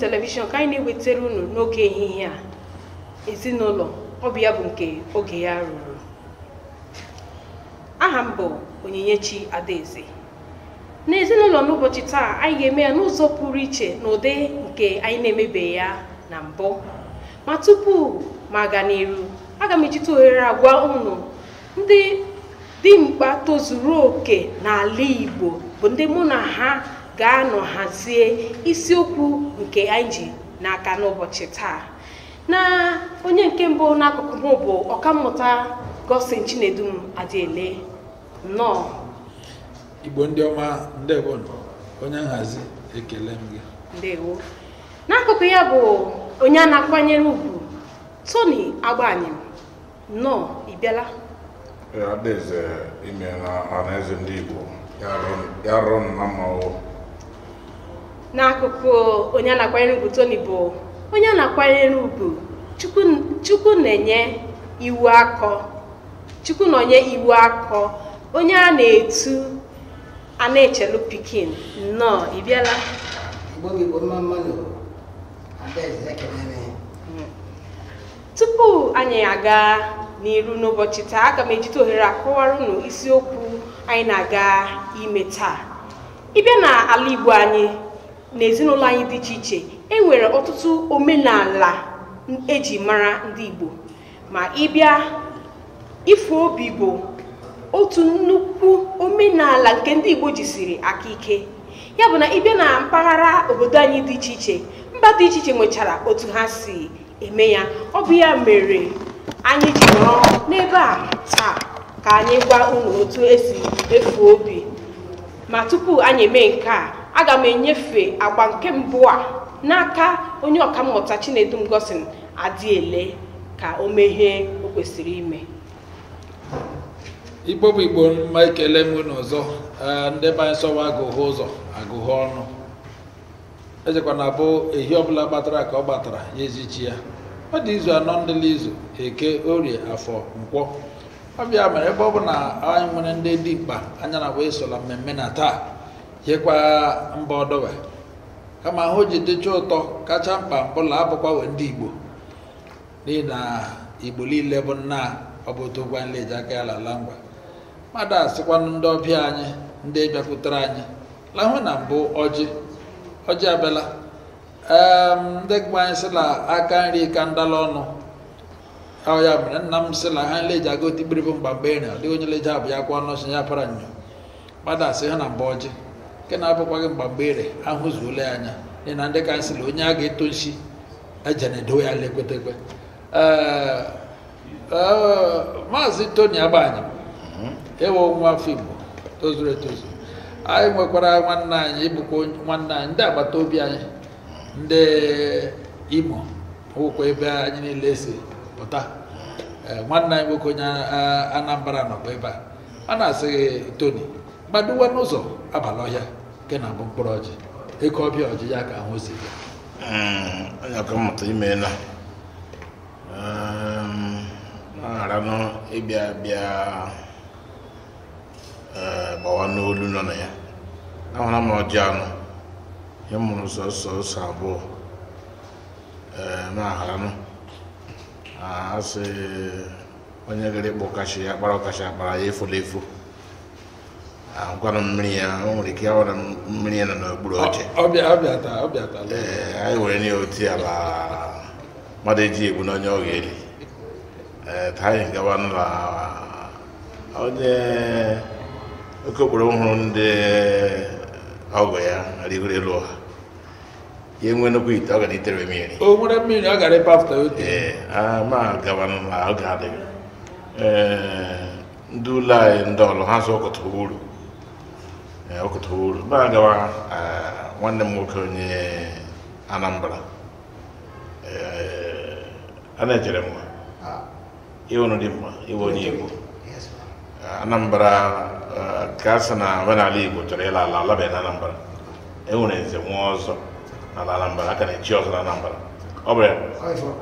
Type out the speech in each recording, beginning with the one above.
televishọn ka anyị na-ewetara unu n'oge ehihie a ezinụlọ ọ bụ ya bụ nke oge ya ruru aha m bụ onyinyechi adaeze n'ezinụlọ n'ụbọchị taa anyị ga-eme ya n'ụzọ pụrụ iche n'ụdị nke anyị na emebe ya na mbụ ma tupu ma aga n'iru aga m ejite ohere agwa unu ndị dimkpa tozuru oke n'ala Igbo bụ ndị mụ na ha ga-anọ hazie isiokwu nke anyị ji n'aka n'ụbọchị taa na onye nke mbụ n'akụkụ m bụ ọkammụta Godson Chinedum adịele. nnọọ Igbo ndị ọma ndewo onye nhazi ekele m gị ndewo n'akụkụ ya bụ onye a na-akwanyere ugwu Tony Agbanyem nnọọ ị bịala adaeze imeela ọhaneze ndị Igbo ya rụrụ na mmanwụ n'akụkụ onye a na-akwanyere ugwu Tony bụ onye a na-akwanyere ugwu chukwu na-enye iwu akọ chukwu na iwu akọ onye a na-etu a na-echelu pikin nnọọ ị bịala tupu anyị aga n'iru n'ụbọchị taa aga m ejite ohere akọwara unu isiokwu anyị na-aga ime taa ịbịa na ala Igbo anyị n'ezinụlọ anyị dị iche iche e nwere ọtụtụ omenala eji mara ndị Igbo ma ịbịa ifo obi bụ otu nnukwu omenala nke ndị Igbo jisiri aka ike ya bụ na ịbịa na mpaghara obodo anyị dị iche iche mba dị iche iche nwechara otu ha si eme ya ọ bụ ya mere anyị ji nọrọ n'ebe a taa ka anyị gwa unu otu esi efu obi ma tupu anyị eme nke a aga m enyefe agba nke mbụ a n'aka onye ọkammụta Chinedum Godson Adiele ka o meghee o kwesịrị ime igbo bụ igbo mma ekele m n'ọzọ e, ndị be anyị sọwa agụghị ụzọ agụghị ọnụ ejekwana abụ ehi ọbụla gbatara ka ọ gbatara ya ezichi ya ọ dị izu anọ ndịla izu eke orie afọ nkwọ ọbịa mere ebe ọ bụ na anyị nwere ndị dị mkpa anya na wee sola mmemme na taa hekwa mba ọdọwe kama ahụ ji dịcha ụtọ kacha mkpa mpụla abụkwa wee ndị igbo n'ihi na igbo niile bụ nna ọ bụ otu gwa nleji aka ya lala ngwa mmadụ asịkwanụ ndị ọbịa anyị ndị bịakwutere anyị lahụ na mbụ ọjị ọjị abịala ndị gba anyị sịla aka nri ka ndala ọnụ ahụ ya mere nna m sịla ha nleji aga otigbiribụ mgba mgbe ịrịa dịghị onye leji abụ ya kwa ọnụ ọchị ya para nyo mmadụ asị ha na mbụ ọjị nke na-abụkwaghị mgbagbere ahụzuola ya anya dị na ndị kansịl onye a ga-eto nshi ejenedo ya lekwetekwe maazị toni agbanyị mhm. ewo nwa afọ igbo tozuru etozu anyị nwekwara nwanne anyị ịbụkwa nwanne anyị ndị agbata obi anyị ndị imo ụkwa ebe anyị niile si pụta mhm. nwanne anyị nwoke onye anambra nọkwa ebe a a na-asị toni gbadowa n'ụzọ abalị ọhịa nke na abụ mkpụrụ ọjị ịkọ ọbịa ọjị ya ka ahụ si onye mmụta imeela na-aranụ ịbịa bịa gbawa n'olu nọ na ya ahụra m ọjị anọ ya mụrụ sọsọ ụsọ abụọ na-aranụ asị onye gịrị kpụ kachi ya kpara ọkachi akpara ya efula efu ahụkwara mmiri ya o nwere ike ịhụra mmiri ya nọ n'okpuru oche ee anyị nwere nye otu ya ma mmadụ eji egbu n'onye ọ ga-eli ee taa anyị gawa n'ụlọ onye oke okporo hụrụ ndị ọgụ ya rigoro elu ọha ihe nwe nnukwu ite ọ gara itere mmiri o nwere mmiri ọ gara ote ee ma gawa n'ụlọ ọ ga-adịghị ee ndị ụlọ anyị ndị ha zụ ọkọtụ uru Eh, ọkụtawuru na gawa eh, nwanne m nwoke onye anambra eh, a na-echere mma ịhụnụ ah. dị mma iwe onye igbo anambra ka a sị na omenala igbo chọrọ ịla ala alabeghị na anambra enwere nze nwa ọzọ na ala anambra aka na-echi ọzọ na anambra ọ bụ ya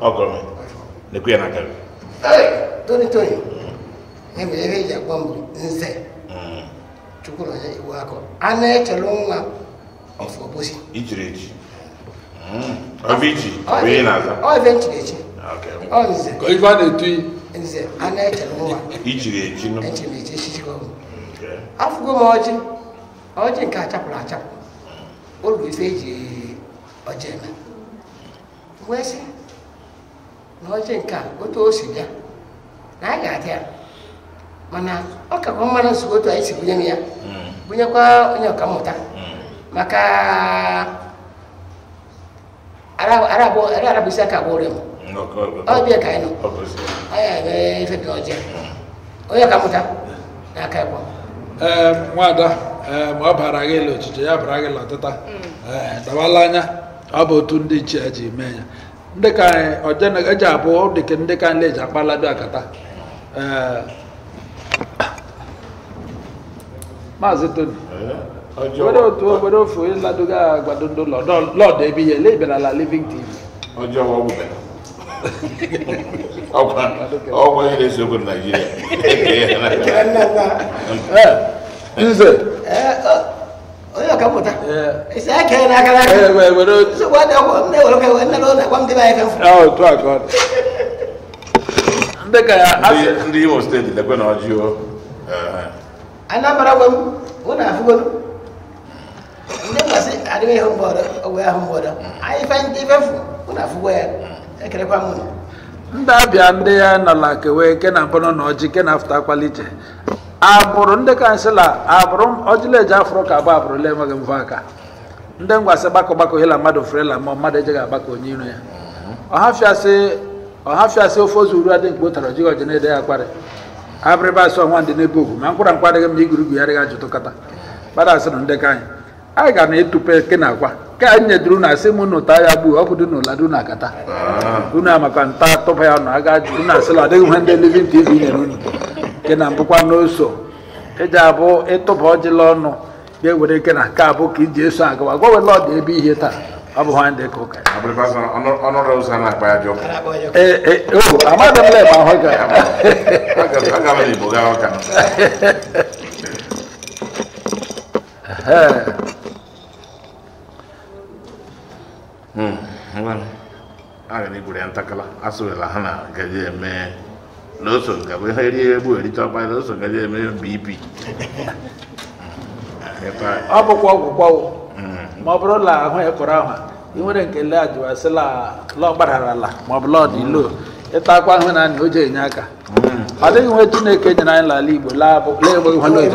ọgọrọ na-ekwu ya na aka tukuna ya iwu akọ a na-echele nwa ọfọ bosi ijiri eji ọbiji bụ ị na na-etu nze a na-echele nwa ijiri eji nụ echiri eji echichikọ m afụgo m ọjị ọjị nke achapụrụ achapụ olu ife eji ọjị eme wee sị na ọjị nke otu o si bịa na a ga-adị ya mana ọ ka bụ mmanụ nsogbu otu anyị si bunye m ya hmm. bunyekwa onye mmụta hmm. maka arabụ isi aka gbụrụ m hmm, ọbịa ka anyị nọ ọya ebe ife dị ọjọọ onye mmụta na aka ịkpọ ee eh, nwaada eh, ma ọ bara gị ịlụ ọchịchị ya bara gị lọtịta ee eh, dawala anya ọ bụ otu ndị nchi ya ji mee ya ndị ka anyị eji abụ dịka ndị ka anyị na-eji akpalado akata maazị toni were otu obere ofe onye ladoga agbado ndị ụlọ lọdụ ebe ihe ele ịbịarala living tv nze onye isi aka n'aka n'aka nsogbu adị nne were nne n'ụlọ m ah, otu a ka ọ dị ndị ka ya ndị imo steeti lekwe na ọjị o eh, anambra gwa m ụnụ afụgolu ndị mbasị adịghị ahụ mgbọrọ owe ahụ mgbọrọ anyị fe ndị ifefu ụnụ afụgo ya kere kwa ụnụ ndị abịa ndị ya nọla kewe kena bụrụ na ọjị kena afụta kwalite agbụrụ ndị kansịla agbụrụ ọjịleji afụrụ ka abụ abụrụla enweghị mfe aka ndị ngwasị bako bako hela mmadụ ferela ma mmadụ ejeghị agbakọ onye iro ya ọhafịasị ofe ozu uru adị mgbe o tara ọjịghị ọjị na abịrịba asụ ọnwa ndị n'ebe ogwu ma nkwụra nkwa adịghị m igwu igurugwu ya adịghị ajụtụkọta gbada asịrị ndekọ anyị anyị ga na etupe ke na akwa ke anyị nyeduru na asị m n'ụta ya gbuo ọkụ dị n'ụla dị na akata ah. unu amaka nta tụba ya nọ aga jụ unu asịla ọ dịghị ihe ndị livin tv nyere unu ke na mbụkwa n'oso eji abụ ịtụba e ọjịla ọnụ ga-ewere ike na nke abụ ka iji eso agawa gwawela ọ dị ebe ihe taa abu hwan de ko kai abu ba san ono ro sana pa ya joko eh eh o ama da le ba hoga aga aga me bo ga hoga hmm wala aga ni gure antakala asu la hana gaje me lọ́sọ̀ gàbé ẹrí ẹbú ẹ̀rí tó apá lọ́sọ̀ gàjẹ́ mẹ́rin bíbí. ọ bụkwa ọgwụkwọ ma ọ bụrụ la ahụ ya e kọrọ ahụ ị nwere nke le ajụwasị la lọ gbarara hmm. la ma ọ bụ lọ dị lo ịta akwa ahụ na anyị o ji enye aka ọ dịghị nwe chineke nyere anyị n'ala igbo laa ebe ihe lo eji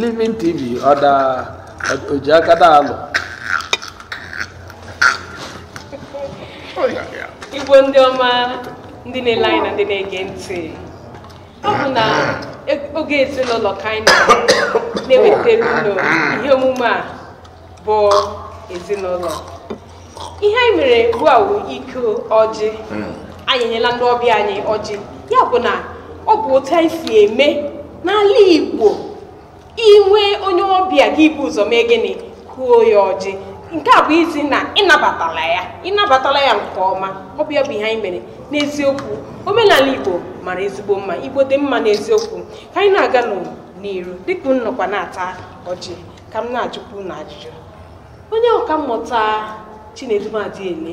living tv ọ da oji aka da alụ igbo ndị ọma ndị na-ele anyị na ndị na-ege ntị ọ bụ na oge ezinụlọ ka anyị na-ewetara ihe omume a bụ ezinụlọ ihe anyị mere bụ awụ iko ọjị anyị nyela ndị ọbịa anyị ọjị ya bụ na ọ bụ otu anyị si eme n'ala Igbo inwe onye ọbịa gị bụ ụzọ mee gịnị kụọ ya ọjị nke a bụ izi na ịnabatala ya ịnabatala ya nke ọma ọ bụ ya bụ ihe anyị mere n'eziokwu omenala igbo mara ezigbo mma igbo dị mma n'eziokwu ka anyị na-aga n'iru dịka m nọkwa na-ata ọjị ka m na-ajụkwu na ajụjụ onye ọka mmụta chinedu adiele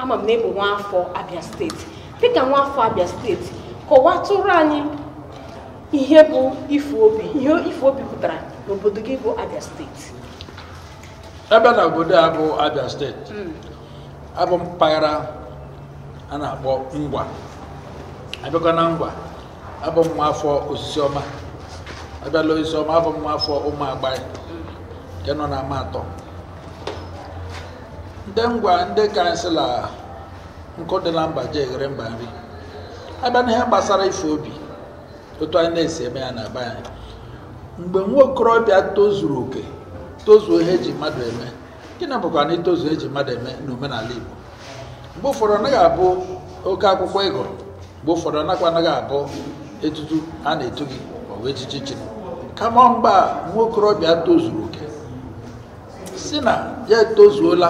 ama m na ịbụ nwaafọ abịa steeti dịka nwaafọ abịa steeti kọwatụrụ anyị ihe bụ ife obi ihe ife obi pụtara n'obodo gị bụ abịa steeti ebe na obodo a bụ abia steeti hmm. abụ mpaghara a na-akpọ ngwa abịakwa na ngwa abụ m afọ osisi ọma abịala osisi ọma abụ m afọ ụmụ agbaị nke nọ na ama atọ ndị ngwa ndị kansịla nkụ dị na mba ji eghere mba nri abịa n'ihe gbasara ife obi otu anyị na-esi eme ya na be mgbe nwa okorobịa tozuru oke tozuo ihe eji mmadụ eme gịnị bụkwa na itozuo eji mmadụ eme n'omenala Igbo mgbe ụfọdụ anaghị abụ oke akwụkwọ ịgụrụ mgbe ụfọdụ anakwa anaghị abụ etutu a na-etu gị ọwa echichi chiri kama mgba nwa okorobịa tozuru oke si na ya etozuola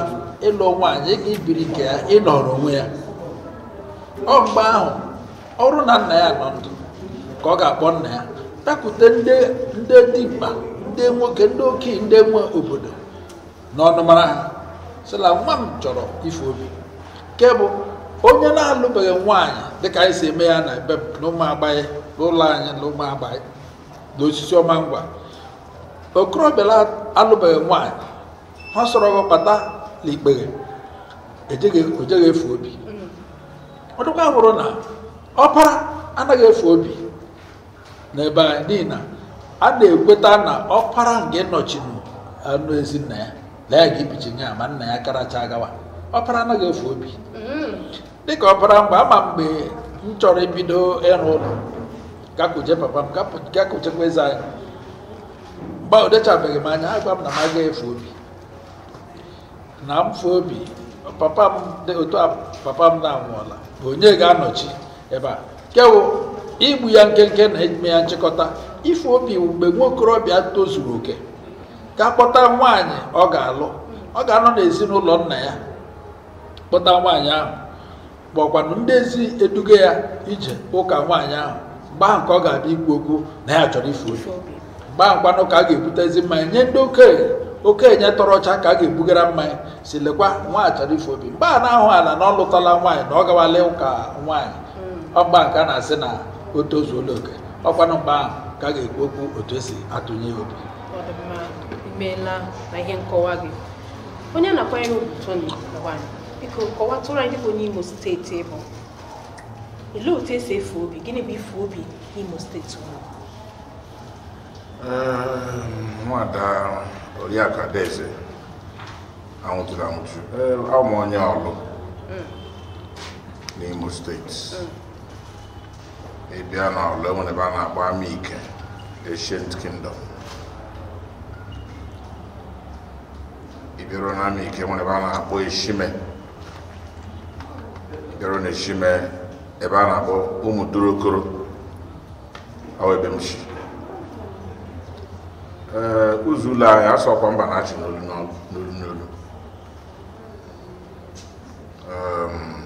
ịlụ nwaanyị ịga ibiri nke ya ịnọrọ onwe ya ọ mgbe ahụ ọrụ na nna ya nọ ndụ ka ọ ga-akpọ nna ya takwute ndị dị mkpa ndị nwoke ndị okenye ndị nwe obodo n'ọnụmara ha sịla nwa m chọrọ ife obi nke bụ onye na-alụbeghị nwaanyị dịka anyị si eme ya na be na ụmụ agbaghị n'ụlọ anyị na ụmụ agbaghị na osisi ọma ngwa okorobịa alụbeghị nwaanyị ha sọrọ gị kpata n'ikpeghe ojeghị e efu obi ọ dịkwa hụrụ na ọpara anaghị efu obi n'ebe anyị n'ihi na a na-ekweta na ọkpara nke nọchiri anụ ezi nna ya na ya ga-ebichi nye ya ma nna ya karacha agawa ọkpara anaghị efu obi mm-hmm. dịka ọkpara mgbe ama mgbe m chọrọ ibido ịrụ ụlọ gakuje papa m gakujekwa eze anyị mgbe o dechabeghị m anya agwa m na m agaghị efu obi na mfu obi papa m otu papa m na-anwụọla onye ga-anọchi ebe a kewụ igbu ya nkenke na ime ya nchịkọta ife obi mgbe nwa okorobịa tozuru oke ka kpọta nwanyị ọ ga-alụ ọ ga-anọ n'ezinụlọ nna ya kpọta nwaanyị ahụ kpọkwanụ ndị ezi eduga ya ije ụka nwaanyị ahụ mgbe ahụ ka ọ ga-abịa ikwu okwu na ya chọrọ ife obi mgbe ahụ kwanụ ka a ga ezi mmanya nye ndị okenye okenye tọrọ ọcha ka a ga-ebugara mmanya si lekwa nwaanyị chọrọ ife obi mgbe a na-ahụ ala na ọ lụtala nwaanyị na ọ gawala ụka nwaanyị hmm. ọgba nke a na-asị na o tozuola oke ọkwanụ mgbe ahụ ka a ga-ekwu okwu otu esi atụnye obi imeela na ihe nkọwa gị onye na-akwanyere ugwu Tony Lawal biko kọwatụrụ anyị bụ n'Imo steeti ịbụ, olee otu esi efe obi gịnị bụ ife obi n'Imo steeti unu ehm, nwada oriakụ Adaeze anwụchụrụ anwụchụ abụ m onye ọlụ mm. n'Imo steeti mm. ị na n'ọlụ enwere ebe a na-akpọ ama ike ancient kingdom na n'ama ike nwere ebe a na-akpọ eshime ịbịaruo na eshime ebe a na-akpọ ụmụ dorokoro awebe m si ee ụzọ ụlọ ahịa asọkwa mba na-achị n'olu n'olu n'olu ehm,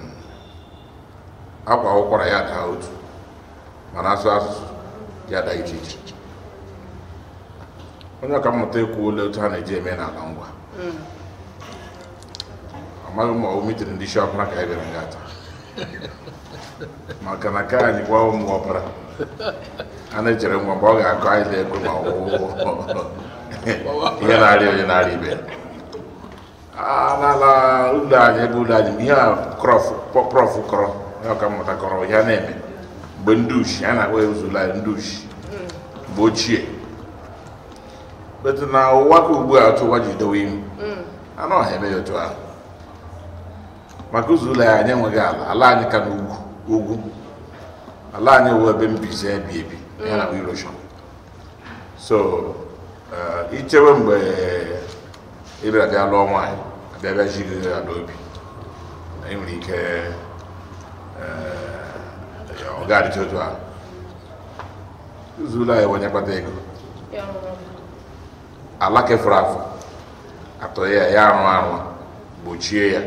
akwa ụkwara ya daa ma na-asụ asụsụ ya da iche iche onye ọka mmụta ekwuola otu ha na-eji eme n'ala ngwa hmm. amaghị m ma ọ mitiri ndị isi ọbara ka anyị bịara nga taa maka na ka anyị gwa ụmụ ọbara a na-echere ngwa mgbe ọ ga-akọ anyị ego ma ọwụwụ ihe na-arịa onye na-arịa ibe n'ala ụlọ anyị ebe ụlọ anyị ihe a prọf kọrọ onye ọka mmụta kọrọ ihe a na-eme mgbe ndị ushi a na-akpọ ya ndị ushi ochie na ụwa ka ugbu a ụwa ji dowe ihu mm. anụ ọha eme ya otu ahụ maka ụzọ ụlọ anyị enweghị ala ala anyị ka n'ugwu ugwu ala anyị wụ ebe mbize ebi ebi mm. ya na erosion so uh, ichewe mgbe ịbịa bịa lụọ ya n'obi na ike uh, ọ ga-adịcha otu ahụ zuru anyị onye kpata ego ala kefuru afọ atọghị ya ya arụ arụ gbochie ya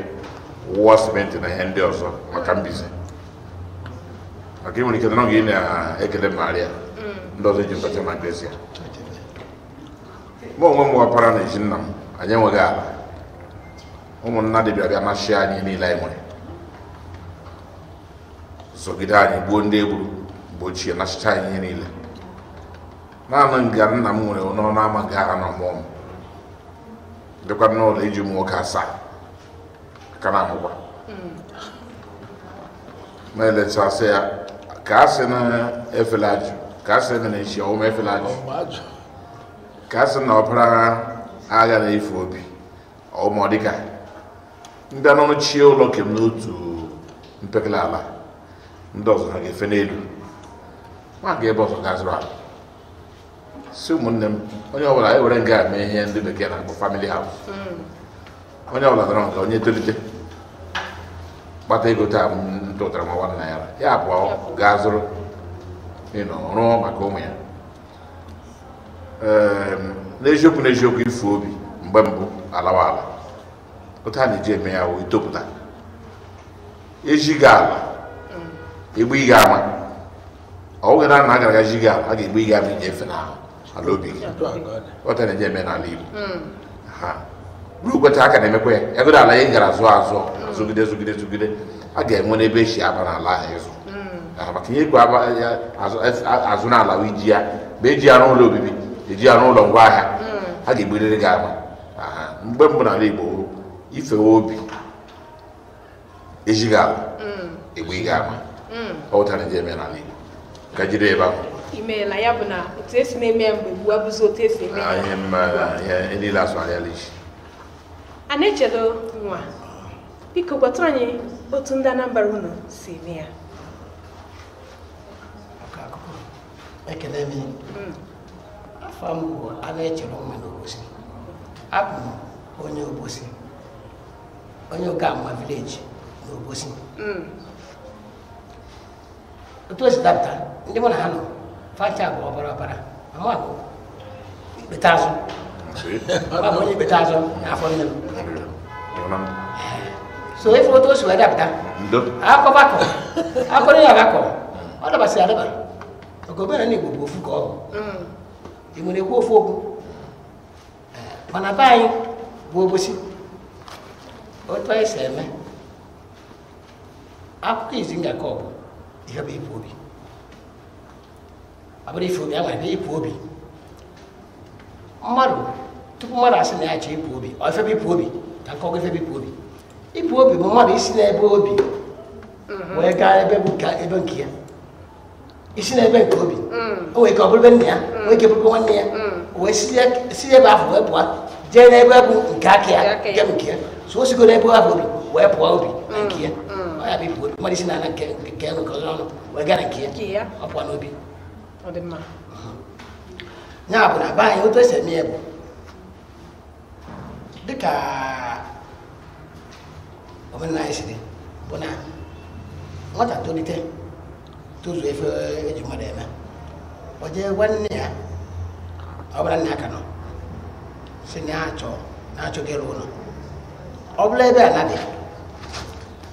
wụwa simenti na ihe ndị ọzọ maka mbize maka nwere ike na oge na-ekele maria ndị ọzọ ji mkpacha na gresịa mụ onwe m wapara na eji m anyị enweghị ala ụmụnna dịbịa bịa na chi anyị niile anyị nwere sogide anyị gbuo ndị egburu mgbe ochie nachicha na ihe niile naanị nga nna m nwere n'ọnụ ama gara na ọmụọ m dịkwa n'ụlọ iji ụmụ asaa aka na-ahụkwa hmm. ma eletasị ya ka a sị na ka na ọwụma efela ajụ ka a na agha na-efu obi ọ ndị anụnụ chie ụlọ kem n'otu mpekele ala ndị ọzọ ha ga-efe n'elu nwa ga ebe ọzọ ga-azụrụ ala si ụmụnne m onye ọbụla e were nga mee ihe ndị bekee na-akpọ famili haus hmm. onye ọbụla dọrọ nke onye tolite kpata ego taa ntụtara nwa nwanna ya ya abụọ gaa zụrụ ịnọ rụọ maka ụmụ ya ehm, n'eziokwu n'eziokwu ifu obi mgbe mbụ alawa ala otu a na-eji eme ya wee topụta ejighị ala egbe ị ga-ama ọ bụghị na agara ji gị a ga-egbu ị ga-ama inyefe n'ahụ ala obi gị ọta na-eje eme n'ala Igbo hmm. ha ruo kweta aka na-emekwa ya ego ala anyị gara azụ azụ zụgide zụgide zụgide a ga-enwe n'ebe e si aba n'ala ahụ ịzụ hmm. maka ihe ego azụ n'ala wụ iji ya ma eji ya n'ụlọ obibi eji ya n'ụlọ ngwaahịa hmm. a ga-egburiri gị ama mgbe mbụ n'ala Igbo ifewe obi ejighị ala egbe ị ga-ama ọ wụtara eme n'ala Igbo ka ebe ahụ ya bụ na otu esi na-eme ya mgbe gbua bụzi otu esi eme niile asụ anya lishi a na echedo nwa biko gwata anyị otu ndị Anambra unu si eme ya mm. afọ m a na-echere n'obosi abụ m onye obosi onye vileji n'obosi tuwesi dabta ndi mona hano facago obara obara amako ɓe taso mamoñi ɓe taso afonnem so il faut tuwesi wa dabta ako bako ako ni abako oɗo basi adaba ogo ɓena ni gbogbo ofu ko imune ku ofu ogu mana bayi gbobosi o tọ ẹsẹ mẹ akụkọ izi nga kọbụ ihe bụ ịpụ obi ọ bụrụ ife obi a gwara ịpụ obi mmadụ tupu mmadụ asị na ya chọọ ịpụ obi ọ ife bụ ịpụ obi ka nkọwa ife bụ ịpụ obi ịpụ obi bụ mmadụ isi n'ebe obi wee gaa ebe ebe nke ya isi n'ebe nke obi o ọ bụrụ ebe nna ya bụrụ nwanne ya wee si ebe ahụ wee pụọ jee n'ebe bụ nke aka ya nke nke ya so o sigo n'ebe ahụ obi wee pụọ obi na nke ya ọ ya bụ ibu mmadụ isi na-ana nke nke ego ọnụ wee gara nke ya ọkwa n'obi ya bụ na be anyị otu esi eme ya bụ dịka omenala anyị si dị bụ na nwata tolite tozuo efe eji mmadụ eme ọ jee gwa nne ya ọ bụla nne ya ka nọ si na achọ na achọghị ịrụ ụlọ ọ bụla ebe a na-adịghị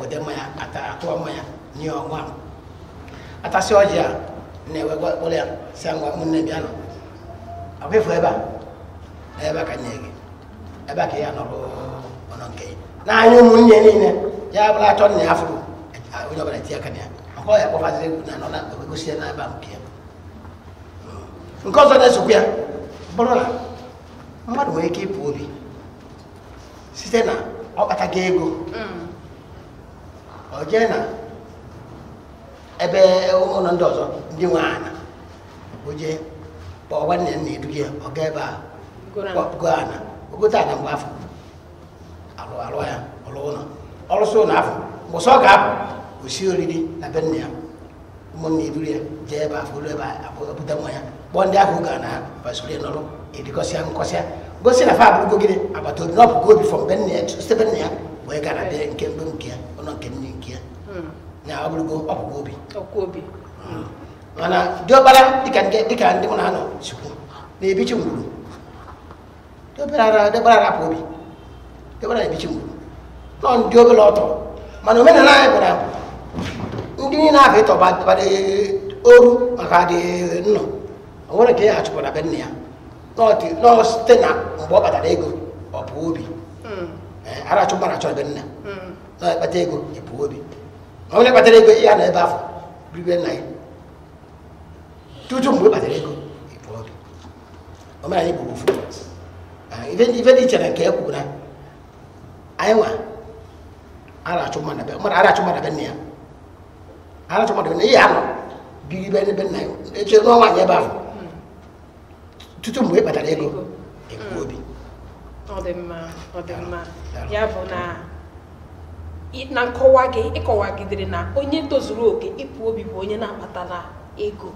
wede mmanya atụọ mmanya nye ọnwa atasị ọjị a na-ewegwa ụlọ ya si ngwa ụmụnne bịa nọ ọbịfụ ebe a ebe a ka nye gị ebe a ka ya nọrụ ọnọ nke ya n'anya ụmụnne niile ya bụla atọ na ya fụrụ onye ọbụla tinye aka na ya ọ ya kpọfazi egwu na anọ na egosi ya na n'ebe nke ya nke ọzọ na-esokwa ya bụrụ na mmadụ nwere ike ịpụ obi site na ọkpatago ego ọ jee na ebe ụlọ ndị ọzọ ndị nwe ana o kpọọ nwanne ya na-edu gị ọ gaa ebe a go ana ogote ana mgbe afọ alụ alụ ya ọrụ ụlọ ọrụsị ụlọ afọ mgbụsọ ọ ga-apụ osi oriri na be nna ya ụmụnna eduru ya jee ebe afọ ebe abụta e nwa ya kpọọ ndị ahụ ga na basoro ya n'ọrụ erikọsịa nkọsịa gosi na fa abụrụgo gịnị agbata obi na ọ obi gobi fọm be nna ya site be nna ya wee gara bịa nke mgbe nke ya ụlọ nke nne na ọ bụrụgo obi mana diọkpara dịka ndị mụ na na-ebichi ngwuru diọkpara rapụ obi diọkpara ebichi ngwuru nọ ndị obere ọtọ mana omenala anyị gwara ndị niile ahụ ịtọbara oru maka dị nnọ o nwere ya achụpụra hmm. eh, be hmm. ya nọọ site na mgbe ọ kpatara ego ọ bụ obi arachụ na-ekpata ego ịbụ obi onye kpatara ego ya na ebe afọ ribe nna ya tutu mgbe kpatara ego omenala igbo bụ ife dị iche na nke ekwuru na anyị nwa arachụ mmadụ be nna ya arachụ mmadụ be nna ya anọ biri be ebe nna ya eche n'ọnwa anyị ebe ahụ tutu mgbe kpatara ego ekwu obi ọ dị mma ọ dị mma ya bụ na na nkọwa gị ịkọwagidere na onye tozuru oke ịpụ obi bụ onye na akpatala ego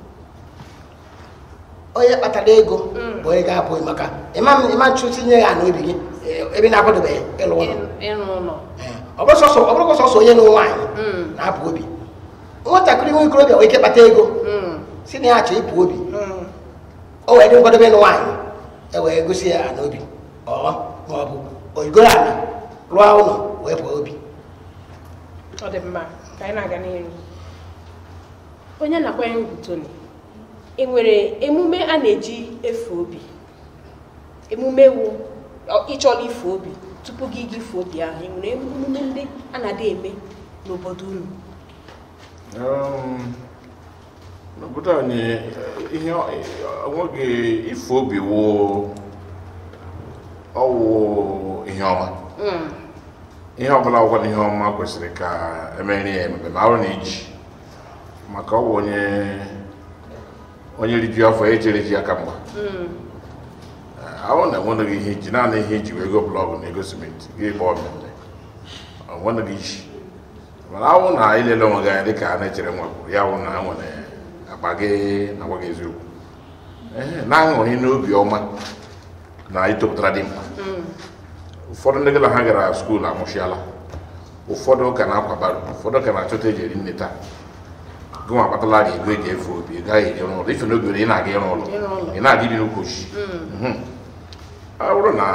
onye kpatara ego mm. bụ onye ga-apụghị maka ịma nchụ tinye ya n'obi gị ebe na-akwadobeghị ịlụ ụlọ eh, ọ bụrụ sọsọ onye na nwaanyị mm. na-apụ obi nwatakịrị nwa ikorobịa nwere ike kpata ego mm. si na ya chọ ịpụ obi o wee dị nkwadobe ịlụ nwaanyị e wee gosi ya n'obi ọ ma ọ bụ ala rụọ ụlọ wee pụọ obi ọ dị mma ka anyị na-aga n'ihu onye na ya ugwu Tony e nwere emume a na-eji efe obi emume wu ịchọrọ ife obi tupu gị gị ife obi ahụ e nwere emume ndị a na-adị eme n'obodo unu um, n'obodo anyị eh, ihe eh, nwoge ife obi wụ ọwụ ihe ọma hmm. ihe ọbụla ọgwa na ihe ọma kwesịrị ka e emeri ya ma arụ na iji maka ọ bụ onye onye riju afọ ejere ji aka mgba hmm. ahụ na enweghị ihe iji naanị ihe iji wee go blọgụ na ego simenti gị gba ọmịmị onweghị iji mana ahụ na ilele onwe gị anya dịka a na-echere bụ na ha nwere akpa na agwa gị eziokwu na n'obi ọma na dị ụfọdụ ndị gala ha gara skuulu amụchiala ụfọdụ ka na-akwabara ụfọdụ ka na-achọta eji eri nne taa gụnwa akpatala gị ego eji efe obi ị gaghị eje n'ụlọ ife ị na-aga ịrụ ụlọ ị na-adị bi n'ukwochi ọ bụrụ na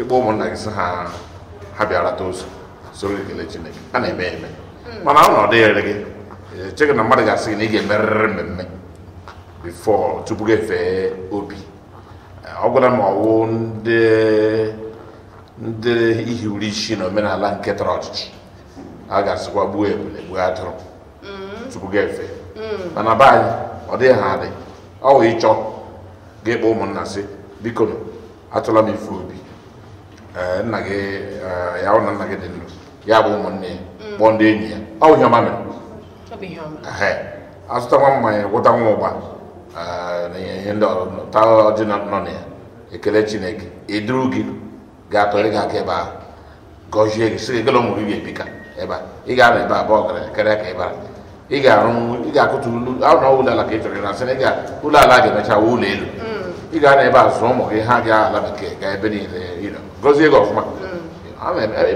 ịkpọ ụmụnna gị sị ha ha bịara ta ụzọ soro ekele chineke a na-eme eme hmm. mana ọ na ọ dịghịrị gị echeghị na mmadụ ga-asị gị na ị ga-emerịrị mmemme bifọ tupu gị fee obi ọ gwara m ọwụ ndị ihiwuri isi na omenala nke tọrọ ọchịchị a ga-asịkwa gbuo ebule gbuo atụrụ mm-hmm. tupu ga efe mm. mana be anyị ọ dịghị ha adị ọ ịchọ ga-ekpe ụmụnna sị biko atụla m ife obi nna gị ya hụ na nna gị dị ndụ ya bụ ụmụnne ya mm. kpọọ ndị enyi ya ọ bụ ihe ọma mere azụta nwa mmanya gwụta nwa ụgba ihe ndị ọrụ dị nọ na ekele chineke eduru gị ga-atọrị gị aka ebe ahụ gọzie gị sị gị gịla ụmụ gị ebika ebe a ị ga-anọ ebe abụọ gara karịa ka ị bara ị ga-arụ ị ga-akụtu ụlọ ụlọ ala ka ị chọrọ ịrasị na ụlọ ala ga-emecha wuo ụlọ elu ị ga-anọ ebe a zụọ ụmụ gị ha ga ala bekee gaa ebe niile gọzie gị ọfụma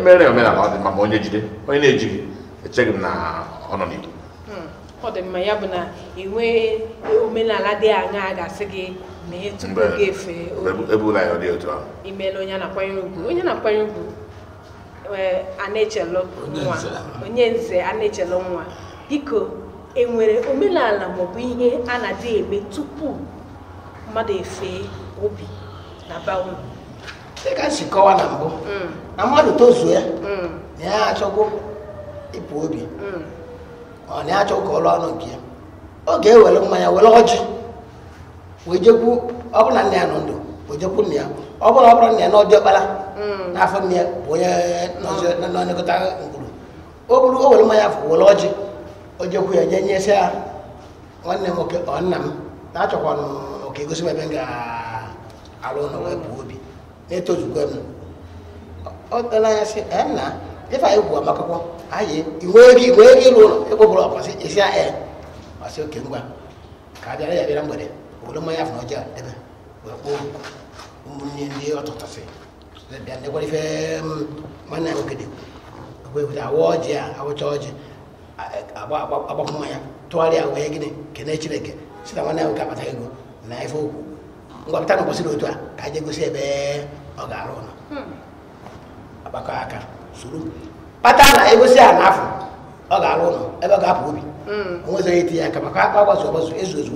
mere omenala ọ dị mma ma onye jide onye na-eji gị echeghị m na ọ nọ n'ihu ọ dị mma ya bụ na iwe omenala dị aṅaa ga-asị gị mee tupu gị efe imela onye na-akwanyere ugwu onye na-akwanyere ugwu a na-echelụ nwa onye nze a na-echelụ nwa biko enwere omenala maọbụ ihe a na-adị eme tupu mmadụ efe obi na banwu dịka ka si kọwa na mbụ mm. na mmadụ tozuo ya na mm. ya achọgo ịpụ obi mm. ọ na-achọ ka ọrụ anụ nke ya ọ ga-ewere mmanya were ọjị wee jekwu ọbụla nna ya nọ ndụ wee jekwu nna ya ọ bụla ọbụla nna ya na ọdị ọkpara hmm. n'afọ nne ya bụ onye nọnyekọta ngwuru o buru o were mmanya afọ were ọjị o jekwu ya nye nyesị ya nwanne m nwoke ọ nna m na-achọkwa ka egosi m ebe m ga-arụ ụlọ wee bụ obi na-etozukwa m ọ dara anya sị nna ife anyị gwụ akwụkwọ ayé ìwé ụlọ ìwé rí isi um, ọ̀nà ẹgbẹ́ bọ̀rọ̀ hmm. àpàṣẹ èsì ẹ̀ ya òkè mgbede obodo alẹ́ yàgbé lágbẹ̀dẹ̀ òwúrọ̀ mọ́ yàfọ̀ ọjà dẹ́bẹ̀ wẹ̀kọ́ ní ndị ọ̀tọ̀tọ̀ fẹ́ lẹ́bi anẹ́gbẹ́rẹ́ fẹ́ mọ́nà òkèdè òwúrọ̀ àwọ̀ ọ̀jẹ̀ àwọ̀tọ̀ ọ̀jẹ̀ abakumaya tọ́wárí àwọ̀ yẹ gíní kẹ́nẹ́ ẹ̀kyẹ́rẹ́ kẹ́ síta mọ́nà òkè àbàtà ẹ̀gbọ́ nà ẹ̀fọ́ òkú ngwa pẹ̀tà nìkọ́sí a à kàjẹ́ gbèsè pata na egosi a n'afọ ọ ga-arụ ụlọ ebe ọ ga-apụ obi mm. onwezoghị eti ya aka maka akpa agbazu agbazu ezu ezu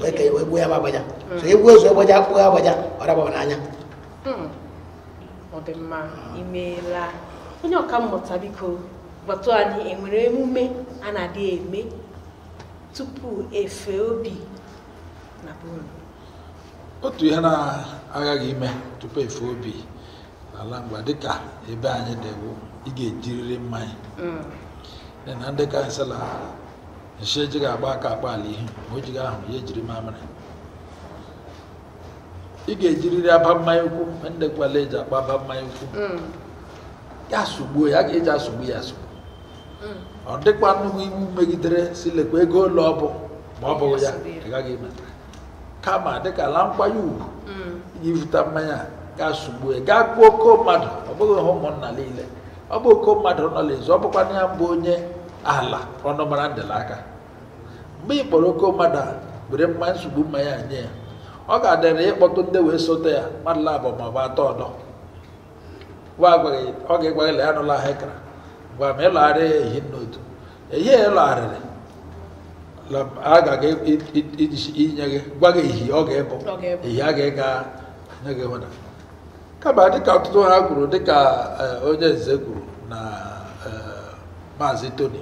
wee kee wee gbuo ya ma agbaja so egbuo ozu agbaja e kpụọ ya agbaja ọ dababa n'anya mm. ọ dị mma imeela onye ọka mmụta biko gbatu anyị enwere emume a na-adị eme tupu efe obi na bụrụ otu ihe na-aghaghị ime tupu efe obi ala mgba dịka ebe anyị dị bụ ị ga-ejiriri mmanya mm. na ndị kansụl nshi ejighị agba aka akpa ala ihe ma o jighị ahụ ya ejiri mamịrị ị ga-ejiriri aba mmanya ukwu ndị gwala eji akpa aba mmanya ukwu mm. ya sụgbuo ya ga-eji asụgbu ya asụgbu mm. ọ dịkwa nnukwu iwu megidere si lekwa ego ụlọ ọ bụ ma ọ bụghị ya ị gaghị emeta kama dịka ala nkwanye ugwu iji vụta mmanya a gaa sugbue gaa gbuo oke mmadụ ọ bụghị ha ụmụnna niile ọ bụ oke mmadụ nọ n'ezi ọ bụkwa ya bụ onye ala ọnụmara ndịla aka mgbe ị kpọrọ oke mmadụ a were mma nsogbu mma ya nye ya ọ ga-adịrị ịkpọtụ ndị wee sote ya mmadụ labụ ma ọ bụ atọ ọdọ ọ ga-egwaghị la ya nụla ahụ ịkara gwa ma ịlọgharị ya ehi n'otu ehihie ịlọgharịrị a ga inye gị gwa gị ehi ọ ga-ebụ ehi a ga-ega nye gị hụna kama dịka ọtụtụ ha kwuru dịka eh, onye nze kwuru na eh, maazị toni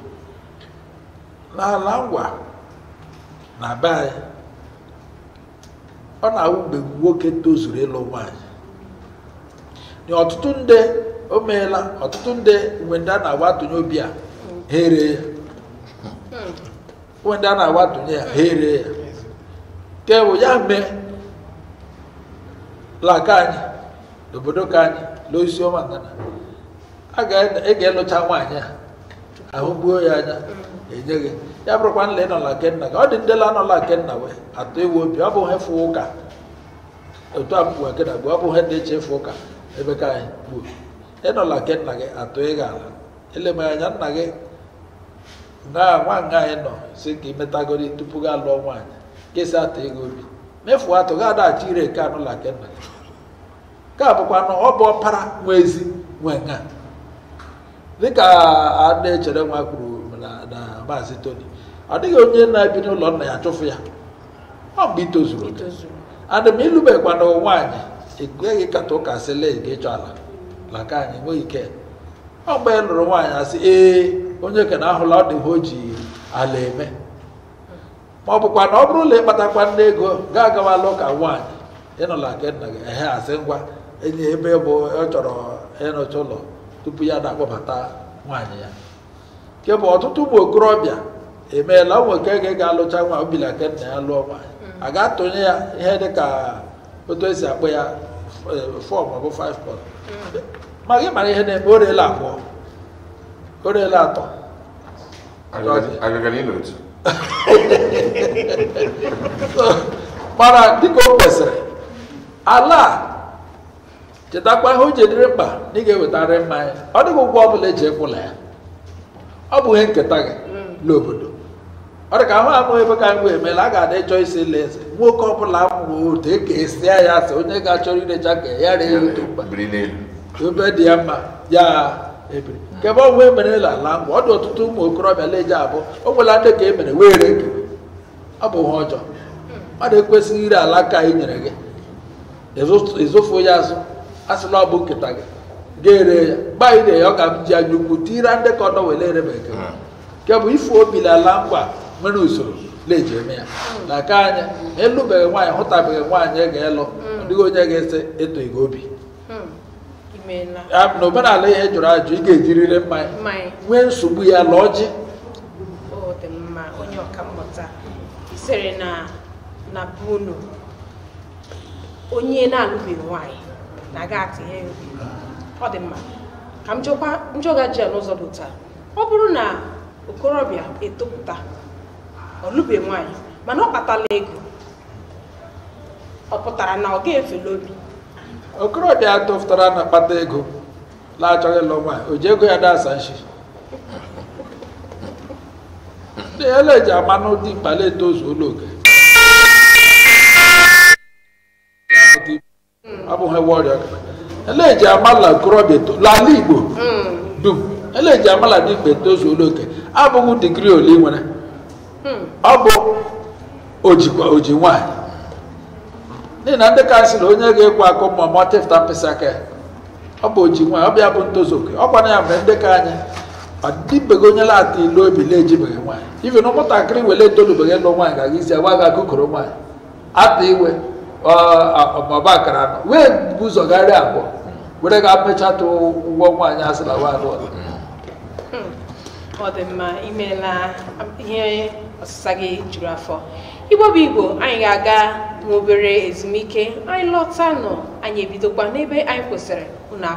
n'ala ngwa na be anyị ọ na-awụ mgbe nwoke tozuru ịlụ nwaanyị na ọtụtụ ndị o meela ọtụtụ ndị mgbe ndị a na-agwa atụnye obi a ha ya mgbe ya nke ya mee laka anyị n'obodo ka anyị lụọ isi ọma ngana a e ga-elụcha nwaanyị a ahụ gbuo ya anya enye gị ya bụrụkwa nla ịnọla nke nna gị ọ dị ndela anọla nke nna wee atụ ewu obi ọ bụghị fụ ụka otu a mgbe gị na gbuo ọ bụghị na-eche ịfụ ụka ebe ka anyị gbuo ịnọla nke nna gị atụ ịga ala eleme anya nna gị na nwa nga anyị nọ si ka imetagori tupu gị alụọ nwaanyị gị si atụ ego obi mefuo atụ gị adaghachi ire nke anụla nke nna gị nke a bụkwa na ọ bụ ọpara nwe ezi nwe nka dịka a echere nwa kwuru na maazị Tony ọ dịghị onye na-ebi n'ụlọ nna ya chụfụ ya ọ mgbe itozuru adị m ilubekwa na nwaanyị ekweghị kata ụka sịle gị ịchọ ala laka ka anyị nweghị ike ọ mgbe e lụrụ nwaanyị asị ee onye na ahụla ọ dịghị o ji ala eme ma ọ bụkwa na ọ bụrụ ụlọ ịkpatakwa nne ego ga agawala ụka nwaanyị ịnọla nke nna gị ehe asị ngwa enye ebe bụ ọ chọrọ ịrụcha ụlọ tupu ya na-akpọbata nwaanyị ya nke bụ ọtụtụ ụmụ okorobịa emeela ụmụ nke ga-alụcha nwa obila ke nna ya lụọ nwaanyị a ga-atụnye ya ihe dị ka otu esi akpọ ya fọ maọbụ five pọt ma gị mara ihe na-eme o ele abụọ o ele atọ mana dịka o kwesịrị ala chetakwa ihe o ji mkpa na ị ga-ewetara mmanya ọ dịghị ụgwọ ọ bụla eji ekwụla ya ọ bụ ihe nketa gị n'obodo ọ dị ka ahụ amụghị ebe ka mgbe emeela a ga-adị chọọ isi ile eze nwoke ọ bụla amụghị otu e esia ya asị onye ga-achọrọ irecha ka ya ree otu mkpa ebe dị ya mma ya ebiri nke ebe ọgwụ la ala ngwa ọ dị ọtụtụ ụmụ okorobịa leje abụ o nwela ndị ka e mere wee ree gị ọ bụ ha ọjọọ mmadụ ekwesịghị ire ala ka anyị nyere gị ịzụfu ya azụ a sị na ọ bụ nkịta gị ga-ere ya gbaire ya ọ ga m anya ukwu tira ndị ka ọ ere bekee hmm. nke bụ ifu obi na ala mkpa nwere usoro na-eji eme ya na aka anyị ịlụbeghị nwaanyị hụtabeghị nwaanyị ga-elụ hmm. dịghị onye ga-ese eto ego obi hmm. na omenala ihe jụrụ ajụ ị ga-ejiriri mmanya nwee nsogbu ya la ji onye na-alụbeghị nwaanyị na aga atụ ihe ọ dị mma ka m jụọga ji a n'ụzọ dị taa ọ bụrụ na okorobịa etopụta ọ lụbe nwaanyị mana ọ kpatala ego ọ pụtara na ọ ga-efele obi okorobịa atụfụtara na kpata ego na-achọghị ịlụ nwaanyị o ji ego ya na-asa nshi ele ji ama n'ụdị mkpala etozu ụlọ oke abụghị nwa ọrịa eleji amala nkorobịa n'ala igbo dum eleji amala dị mgbe tozuola oke abụghị digrii ole ị nwere ọ bụ ojikwa oji nwaanyị n'ihi na ndị ka sị na onye ga-ekwe akụ ma ma tefta mkpịsị aka ya ọ bụ oji nwaanyị ọ bụ ya bụ ntozu oke ọ kwana ya mgbe ndị ka anyị ọdịbego onye lata ilu obi na-ejibeghị nwaanyị ife na ụmụntakịrị wele etolubeghị ịlụ nwaanyị ga-aga isi agwa gị akụkọrọ nwaanyị ata iwe ọba akara nọ wee bu ụzọ abụọ were ga pechata ụgwọ nwaanyị asịla nwaanyị ọzọ hmm. ọ dị mma imeela ihe ọsịsa gị juru afọ igbo bụ igbo anyị ga-aga n'obere ezumike anyị lọta nọ anyị ebidokwa n'ebe anyị kwụsịrị unu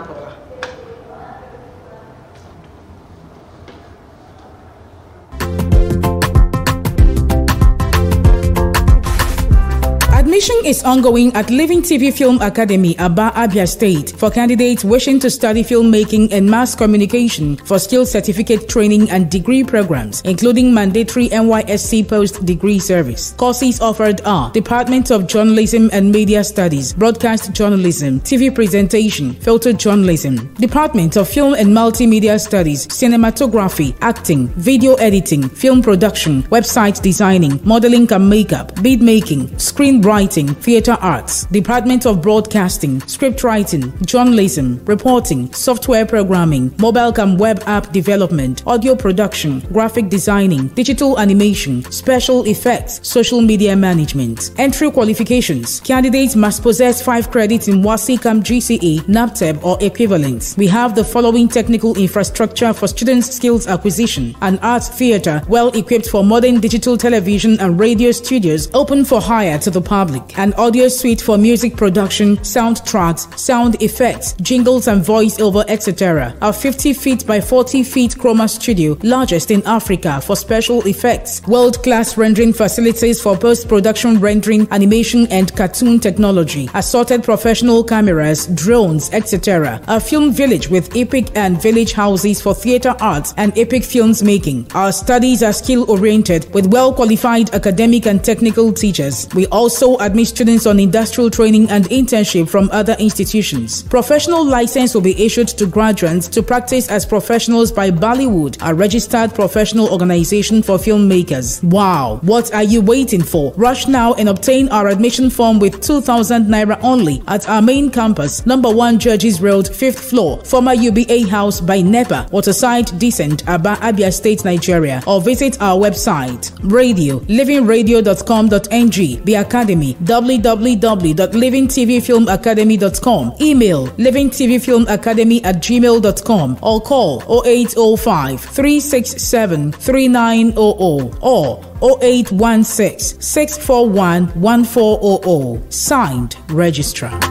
Registration is ongoing at Living TV Film Academy, Aba Abia State, for candidates wishing to study filmmaking and mass communication for skill certificate training and degree programs, including mandatory NYSC post degree service. Courses offered are Department of Journalism and Media Studies, Broadcast Journalism, TV Presentation, Filter Journalism, Department of Film and Multimedia Studies, Cinematography, Acting, Video Editing, Film Production, Website Designing, Modeling and Makeup, Beat Making, Screenwriting Writing, Theatre Arts, Department of Broadcasting, Script Writing, Journalism, Reporting, Software Programming, Mobile Cam Web App Development, Audio Production, Graphic Designing, Digital Animation, Special Effects, Social Media Management. Entry qualifications. Candidates must possess 5 credits in WASICAM GCE, NAPTEB or equivalent. We have the following technical infrastructure for students' skills acquisition. An arts theatre well equipped for modern digital television and radio studios open for hire to the public an audio suite for music production, soundtracks, sound effects, jingles and voiceover, etc. Our 50 feet by 40 feet chroma studio, largest in Africa for special effects, world-class rendering facilities for post-production rendering, animation and cartoon technology, assorted professional cameras, drones, etc. A film village with epic and village houses for theater arts and epic films making. Our studies are skill-oriented with well-qualified academic and technical teachers. We also admit students on industrial training and internship from other institutions. Professional license will be issued to graduates to practice as professionals by Bollywood, a registered professional organization for filmmakers. Wow, what are you waiting for? Rush now and obtain our admission form with 2,000 naira only at our main campus, number 1 Judges Road, 5th floor, former UBA house by NEPA, Waterside Descent, Aba Abia State, Nigeria, or visit our website radio livingradio.com.ng, the academy www.livingtvfilmacademy.com. Email livingtvfilmacademy at gmail.com or call 0805 367 3900 or 0816 641 1400. Signed, registrar.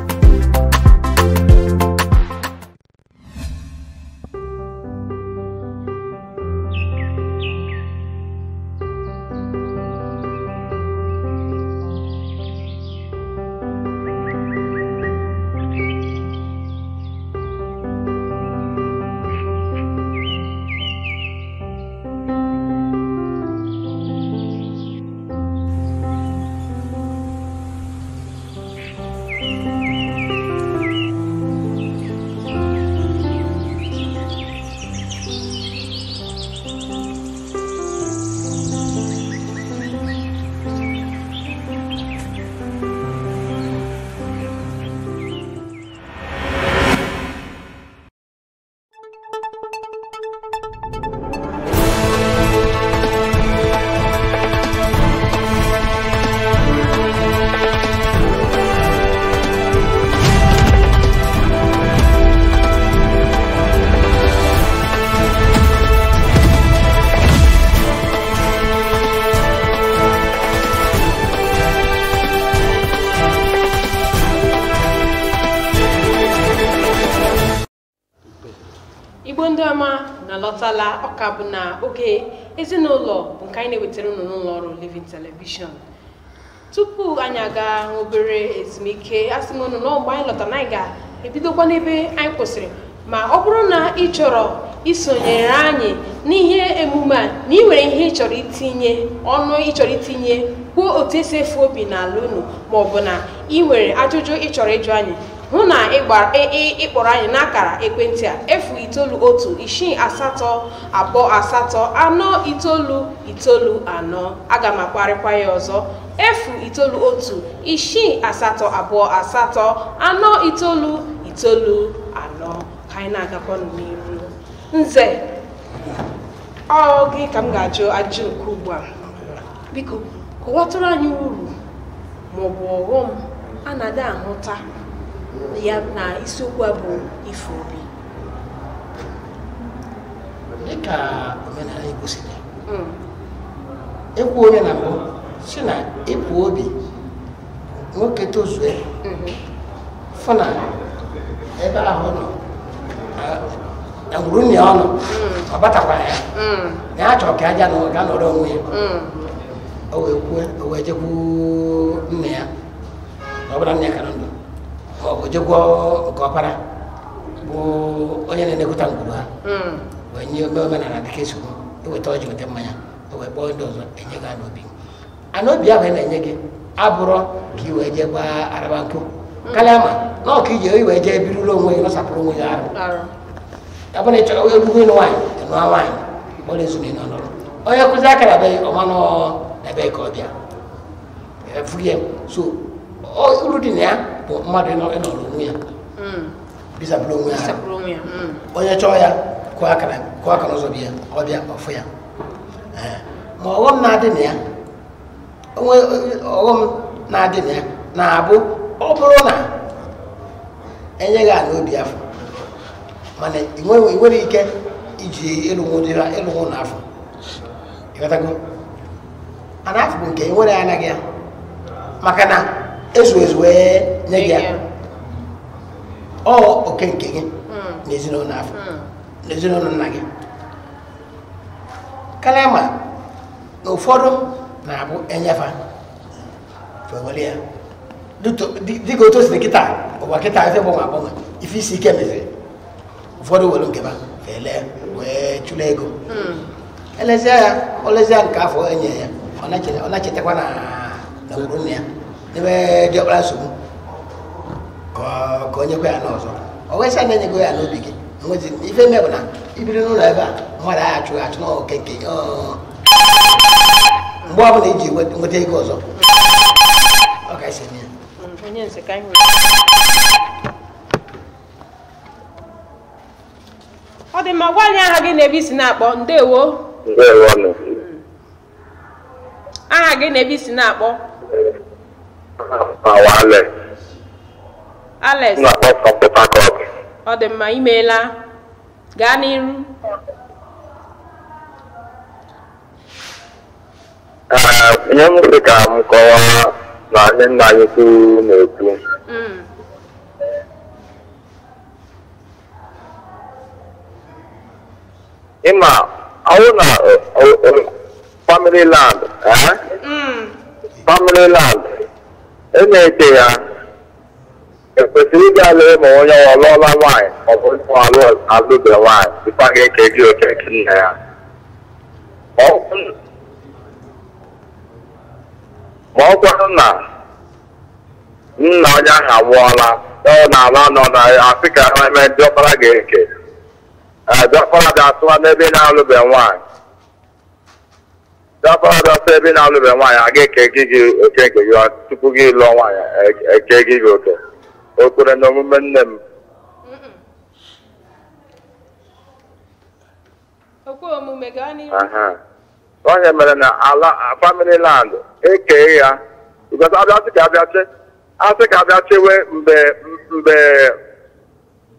a bụ na oge ezinụlọ bụ nke anyị na-ewetara ụnụ n'ụlọ ọrụ Living telivishọn tupu anyị aga obere ezumike asị m na anyị lọta na anyị ga-ebidokwa n'ebe anyị kwụsịrị ma ọ bụrụ na ị chọrọ isonyere anyị n'ihe emume a na ị nwere ihe ị chọrọ itinye ọnụ ị chọrọ itinye kwuo otu esi efu obi n'ala unu ma bụ na ị nwere ajụjụ ị chọrọ ịjụ anyị hụ na ịkpọrọ anyị n'akara ekwentị a efu itoolu otu isii asatọ abụọ asatọ anọ itoolu itoolu anọ aga m akparịkwa ya ọzọ efu itoolu otu isii asatọ abụọ asatọ anọ itoolu itoolu anọ ka anyị na-agakwa n'iru. nze ọ gị ka m ga-ajụ ajụ nke ugbu a biko kọwatụrụ anyị uru maọbụ ọghọm a na-adị ahụta ya na isiokwu a bụ ife obi dịka omenala Igbo siri hmm. ekwu onye na mbụ si na ịpụ obi nwoke tozue hmm. fụ na ebe ahụ nọ na gwurunye ọnụ hmm. ọ batakwara ya na ya chọrọ ka aja na ga nọrọ onwe ya o wee kwuo o wee jekwu nne ya na ọ bụla nne ya ka ndụ ojogwo nke ọpara bụ onye na-elekọta ngwuru hmm. wee nye ome omenala dịka esogbu eweta ọjị weta mmanya wee kpọọ ndị ọzọ enye gị anobi ana obi ahụ ị na-enye gị abụrọ ka ị wee jee araba hmm. ma iji wee onwe onwe ya ị onye na be ka ọ bịa ya bụ mmadụ ịnọrọ mm. onwe ya bịzapụrụ onwe ya mm. onye chọọ ya kụọ akara kụọ akara ụzọ bịa ọfụ ya ma ọghọm na-adị na ya onwe ọghọm na-adị na ya na-abụ ọ bụrụ na enyeghị a n'obi afọ mana ị nwere ike iji ịlụnwụ n'afọ ịghọtago a na afọ bụ nke nwere ya anaghị ya maka na ezu ezu wee nye gị ya ọ oke nke gị hmm. n'ezinụlọ afọ hmm. n'ezinụlọ nna gị kalama na ụfọdụ na-abụ enyefa fewere ya dịka otu osiri kịta ụwa kịta ife gbanwe agbanwe ife isi ike meziri ụfọdụ were nke ha fele wee chụla ego hmm. elezie ya olezie nke afọ enye ya ọ na-echetakwa na nwuru nne ya ebe diọkpara nsogbu ka o nyekwa ya n'ọzọ ọ wesịa na enyego ya n'obi gị nwezi ife ime bụ na ibiri n'ụlọ ebe a mmadụ agha achụ achụ n'oke nke mgbe ọ bụla iji nweta ego ọzọ ọ ga-esi ya ọ dị mma gwa anyị aha gị na ebe isi na-akpọ ndewo aha gị na ebe isi na-akpọ awa Alex. Alex. na-akpọ from Port Harcourt. ọ dị mma imeela gaa n'iru. ihe m sị ka m kọwaa na ndị nna anyị ukwu na-ekwu mm. ịma ọwụ na family land eh? mm. family land e na-ete ya ekwesịrị ịga ala ma onye ọ lụọla nwaanyị ma ọ bụ alụbe nwaanyị dịkwa gị eke gị oke nke nna ya ma ọ kwarụ na nna onye ahụ anwụọla ọ na-ala nọ na afrịka eme ndị ọkpara gị eke ndị ọkpara ga-atụwa n'ebe na-alụbe nwaanyị dapọdọ sọ ebe na-alụbe nwaanyị aga ga-eke gị gị oke nke gị tupu gị lụọ nwaanyị eke gị gị oke o kwere na omume nne m onye mere na ala famili land ekee ya because abịasị ka abịasị asị ka abịa chewe mgbe mgbe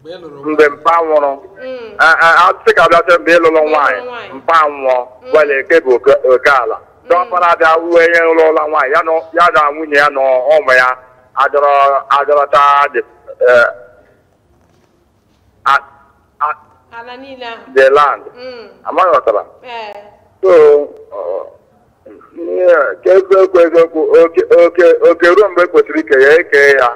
mgbe e mkpa nwụrụ mm. asị ka abịacha mgbe ịlụrụ e nwaanyị e mpa nwụọ gwala mm. eke bụ oke ala mm. dọpara abịa uwe nye ụlọ ụlọ nwaanyị ya na nwunye ya na ụmụ ya adọrọta the land amaghị ọtara eh. so ka ego ekwu eziokwu oke ruo mgbe kwesịrị ike ya ekee ya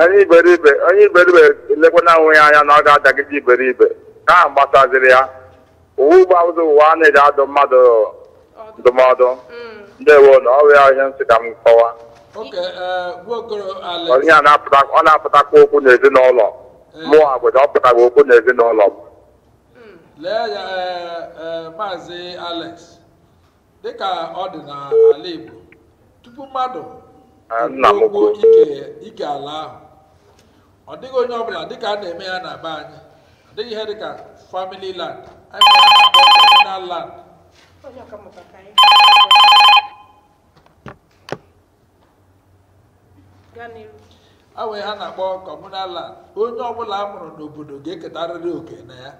onye iberibe onye iberibe elekwana onwe ya anya na ọ ga-adagide iberibe ka ahụ gbasaziri ya uwe ụgbọ ụzọ ụwa na-eji adụ mmadụ ndụmọdụ mm. ndewo na ọrụ ya ihe nsị ka m kọwa onye a ọ na-apụtakwa okwu n'ezinụlọ e. mụ agwụja ọ pụtara okwu n'ezinụlọ m mm. e, e, maazị alex dịka ọ dịghị onye ọbụla dịka a na-eme ya na be anyị ọ dịghị ihe dịka family land anyị land awee ha na-akpọ communal land onye ọbụla a mụrụ n'obodo ga-eketarịrị oke na ya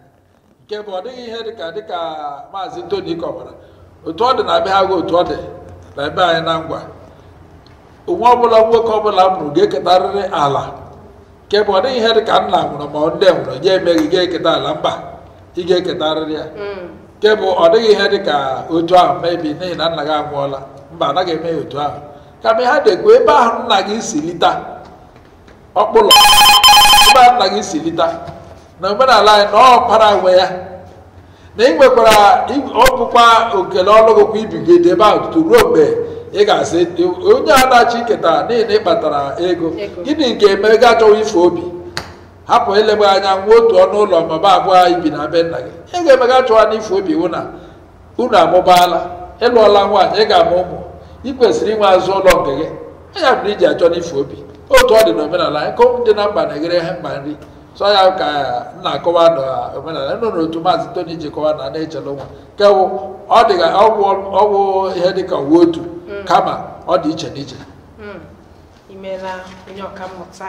nke bụ ọ dịghị ihe dịka dịka maazị Tony kọwara otu ọ dị na be gị otu ọ dị na ebe anyị na ngwa onwe ọbụla nwoke ọbụla mụrụ ga-eketarịrị ala nke ọ dịghị ihe dị ka nna nwụrụ ma nne nwụrụ ya emeghị ga eketa ala mba ị ga-eketarịrị ya nke ọ dịghị ihe dị ka otu ahụ mebi n'ihi na nna gị anwụọla mba anaghị eme otu ahụ kama ha dekwe ebe ahụ nna gị si lita ọkpụlọ ebe ahụ nna gị si lita na omenala anyị na ọkpara nwe ya na ị nwekwara ọ bụkwa okele ọlụgụkwa ibigide ebe ahụ tutu ruo mgbe ị ga-asị onye anachi ketara niile kpatara ego gịnị nke eme ego achọghị ife obi hapụ elebe anya nwa otu ọnụ ụlọ mama abụọ ibi na be nna gị ego emega achọwa na ife obi unu amụbaala ịlụọla nwaanyị ị ga-amụ ụmụ ị kwesịrị inwe azụ ụlọ nke gị anya bụrụ iji achọ n'ife obi otu ọ dị n'omenala anyị kom dị na mba na-eghere ha mkpa nri sọ ya ka na-akọwa n'omenala nọ n'otu maazị toni ji kọwa na na-echele nwa nke ọ dịghị ọgwụ ihe dịka uwe otu Mm. kama ọ dị iche n'iche imeela mm. onye mmụta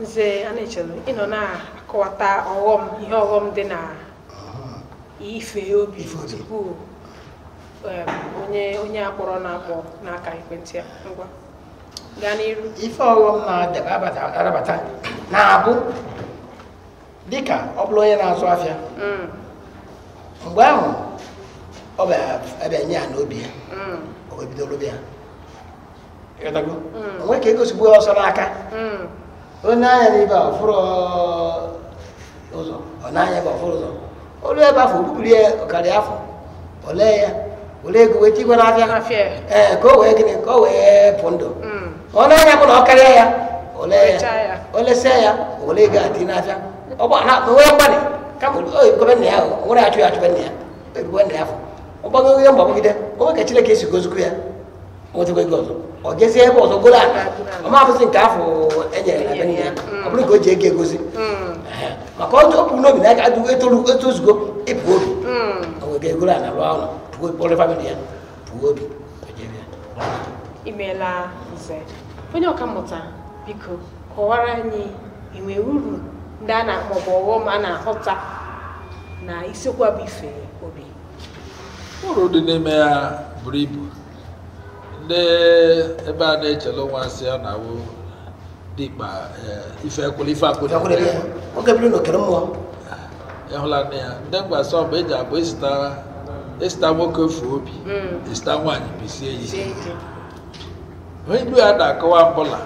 nze ana-echere ịnọ na-akọwata ọghọm ihe ọghọm dị na ah. ife obi tupu onye onye akpọrọ na-akpọ n'aka ekwentị ngwa gaa n'iru ife ọghọm na-arabata na-abụ dịka ọ bụla onye na-azụ afịa mm. mgbe ahụ ọ bụ ebe ya n'obi ya mm. o wee bido lụbịa mm. onwe ka egosigbu ya ọsọ n'aka mm. onye anya n'ebe a ọfụrụ ụzọ ọ na-anya ebe ọfụrụ ụzọ olu ebe afọ obubiri ya ọkarị afọ olee ya ego n'afịa ee ka o wee gịnị ka o wee pụ ndụ ọ na-anya bụ na ọ karịa ya olee ya olesia ya ego adị n'afịa na onwe gọvanọ ya nwere achụ ya na ya nna ya afọ ọgbago ihe ọ onwe ka esi gozikwu ya ego ọzọ ọ jezie ebe ọzọ goro aka ọ nke afọ enyere na ya ọ bụrụ ka o ji ego egozi hmm. maka ọ tọpụ n'obi na aka adịgo etoru etozugo ịpụ obi o rụọ ọrụ famịlị ya pụo obi imeela nze onye ọkammụta biko kọwara anyị enwe uru na-akpọ a na-ahụta na bụ ife uru dị n'ime ya buru ibu ndị ebe a na-echele nwa asị ya na awụ dịkpa eh, ife ekwuli ife akwụna ịhụla nne ya ndị mgbasa ọbụ eji abụ esita nwoke fuo obi hmm. esita nwaanyị bisie isi ilu ya na-akọwa mbụla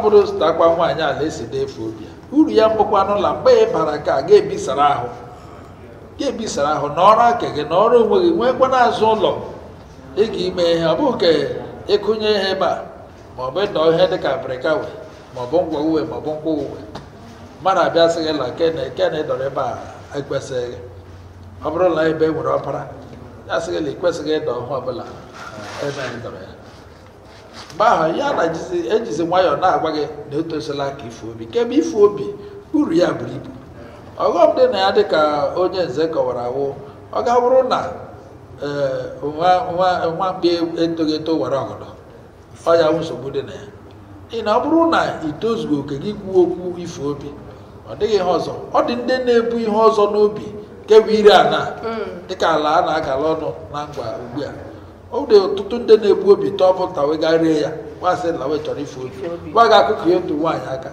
bụrụ sitakwa nwaanyị ala esi na-efu obi ya uru ya mbụkwanụ n'ụlọ mgbe ị bara ka ga-ebisara ahụ ya ebisara ahụ n'ọrụ aka gị na ọrụ onwe gị nwekwa n'azụ ụlọ ị ga-ime ihe ọ bụghị ka ịkụnye e ihe ebe a ma ọ bụ ịdọ ihe dịka abịrịka we ma ọ bụ ngwa uwe ma ọ bụ ngwa uwe mmadụ abịa sị gị la kene kene ịdọrọ ebe a ekwesịghị ọ bụrụ na ebe e nwere ọbara ya sị gị na ịkwesịghị ịdọ ọhụ ọbụla ebe anyị ya mgbe ahụ ya na ejizi nwayọọ na-agwa gị na etosila ka ifu obi kebe ifu obi uru ya buru ibu ọghọm dị na ya dị ka onye nze kọwara awụ ọ ga bụrụ na e, nwamkpi etoghị eto were ọgọdọ ọ ya nsogbu dị na ya ị na ọ bụrụ na itozughị oke gị kwuo okwu ife obi ọ dịghị ihe ọzọ ọ dị ndị na-ebu ihe ọzọ n'obi nke bụ ire ana mm. dịka ala a na-agala ọnụ na ngwa ugbu a ọ dị ọtụtụ ndị na-ebu obi tọpụta wee gaa rie ya nwaasị na wee chọrọ ife obi gwa gị akụkọ ya otu nwaanyị aka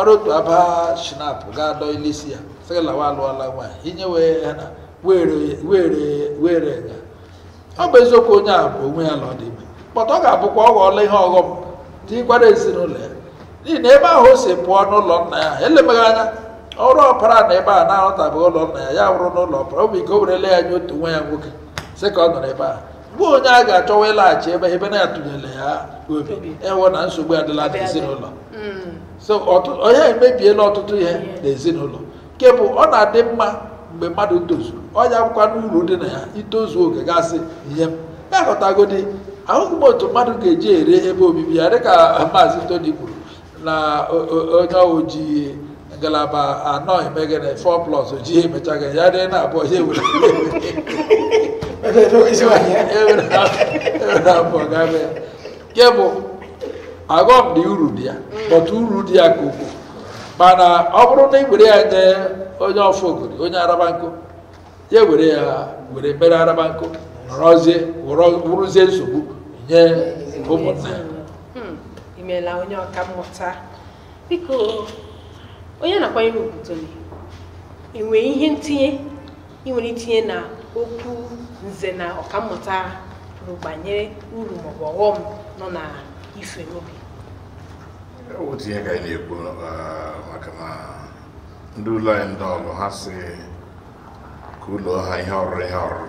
ọrụ otu aba shinap ga dọ ile isi ya sị lawa alụọla nwaanyị inye were ya ọ bụ eziokwu onye a bụ onwe ya na ọ dị ime kpọta ọ ga-abụkwa ọ ghọọla ihe ọghọm dị gwara ezinụlọ ya n'ihi na ebe ahụ o si pụọ n'ụlọ nna ya elemeghị anya ọrụ ọpara na ebe a na-arụtabeghị ụlọ nna ya ya wụrụ n'ụlọ ọpara ọ bụ ike o werele ya nye otu nwa ya nwoke sị ka ọ nọrọ ebe a mgbe onye a ga-achọwa ịlaghachi ebe ebe na-atụnyere ya obi e ịwụ mm. na nsogbu adịla n'ezinụlọ so onye emebiela ọtụtụ ihe n'ezinụlọ nke bụ ọ na-adị mma mgbe mmadụ tozuru ọnya akwụkwọ n'uru dị na ya itozu oge gasị ihe ya e ghọtagodi ahụghị m otu mmadụ ga-eji ere ebe obibi ya dịka maazi toni kwuru na onye ojii ngalaba anọ emegene 4 plus ji emechaga ya dị na abụọ ya ewere ewere e abụọ gabe ya bụ aghọm dị uru dị ya bọtụ uru dị ya ka ukwuu mana ọ bụrụ na ị were ya nye onye ọfọgori onye arabanko ya were ya were mere arabanko nọrọzie wụrụzie nsogbu nye ụmụnna ya hmm, imeela onye ọka mmụta onye na-akwanyere ugwu ị nwere ihe ntinye ị e nwere itinye na okwu nze na ọkammụta kwuru banyere uru maọbụ ọghọm nọ na ife n'obi otu ka anyị na-ekwu maka na ndị ụlọ anyị ndị ọrụ ha si ka ụlọ ha ihe ọrụ ihe ọrụ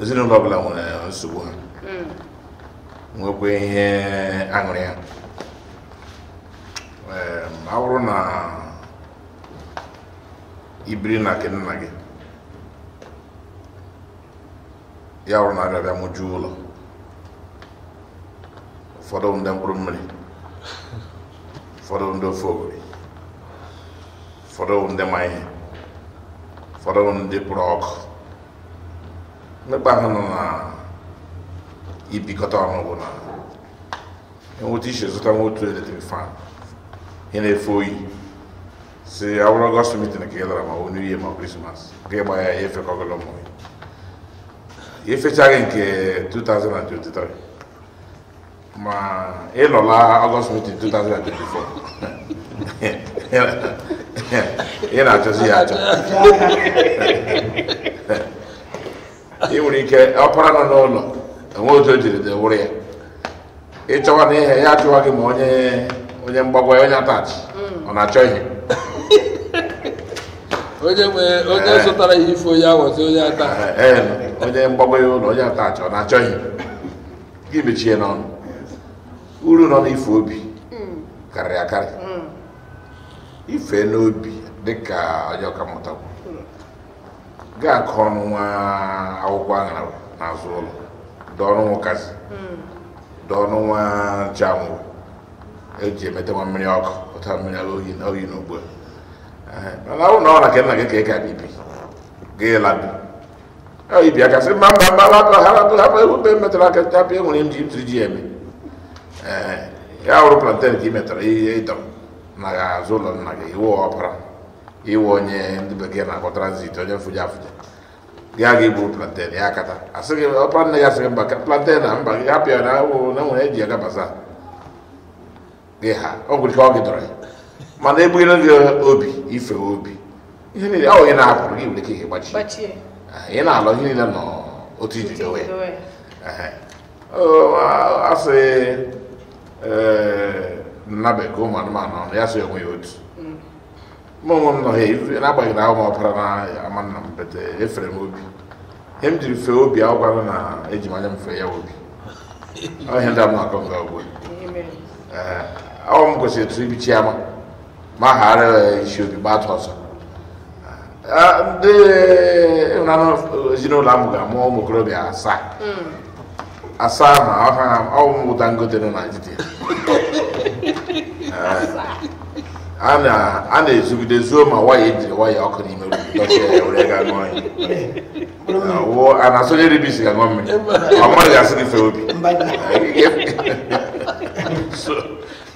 ezinụlọ ọbụla nwere nsogbu ha hmm. nwekwa ihe aṅụrị ha ọ bụrụ na ibiri na nke nna gị ya bụrụ na abịa mụjuo ụlọ ụfọdụ ndị mkpụrụ mmiri ụfọdụ ndị ofe ogori ụfọdụ ndị ma ụfọdụ ndị pụrụ ọkụ mmekpa ahụ nọ na ibikọta ọnụ bụ na enweta iche zụta nwa otu eletrik fan hena efoyi se agora gospel meeting naquela yɛlɛra o new year ma christmas ke ba ya yefe kɔgɔlɔ mɔ ye yefe cage nke 2023 ma e lɔla august meeting 2024 e na atɔ si ya atɔ e nwere que ọpara nọ n'ụlọ não. otu o jiri dị wụrụ ya ịchọwa na ihe ya achọwa gị ma onye mgbagwa ya onye atachi mm. ọ na-achọ ihe onye eh. zụtara ihe ife onye awazi onye ata eh, eh, onye mgbagwa ya ụlọ onye atachi ọ na-achọ ihe gị mechie n'ọnụ uru nọ n'ife obi mm. karịrị akarị mm. ife n'obi dịka onye ọkammụta ga-akọ ọnụ nwa akwụkwọ aṅara n'azụ ụlọ dọọ ọnụ nwokazi dọọ ọnụ nwa nche eji emeta nwa mmiri ọkụ pụta mmiri oyi na ugbu mana ọ na ka nna gị ka ị ga gị ibi aka sị mba mba metara aka enwere m ji ji eme ya hụrụ planten ka ị metara ihe na azụ ụlọ nna gị iwe ọpara onye bekee na-akpọ transit onye mfụja afụja gị aga iburu planten ya akata asịghị ọpara nne ya mba plantain na mba gị hapụ ya na enwere eji aga basa gị ha ọ gwụrụ ka ọ gịdọrọ ya mana egbughịla gị obi ife obi ihe niile ọ onye na-apụrụ gị nwere ike ihe gbachi ah, ị na alọ ihe niile nọ otu iji dowe asị sị eh, nnabekọ ụmụ anụmanụ ọnụ ya sị onwe ya otu mm. mụ onwe m nọ ha n'agbanyeghị na ahụ m na ama nna m efere e m obi ihe m jiri fee obi agwara na eji m fee ya obi ọ ihe ndị m na-akọ nke ọgwụ ọ m kwesịrị etu ibi chiama ma ghara e, isi obi gbata ọsọ ndị ịhụnanụ e, e, ezinụlọ ahụ ga-amụ ụmụ okorobịa asaa mm. asaa ma ọwụ m Dangote nọ na Nigeria a na-ezugide zuo ma waya ejiri waya ọkụ n'ime a na-asonye ribisi ga-aṅụ mmiri ọ asị obi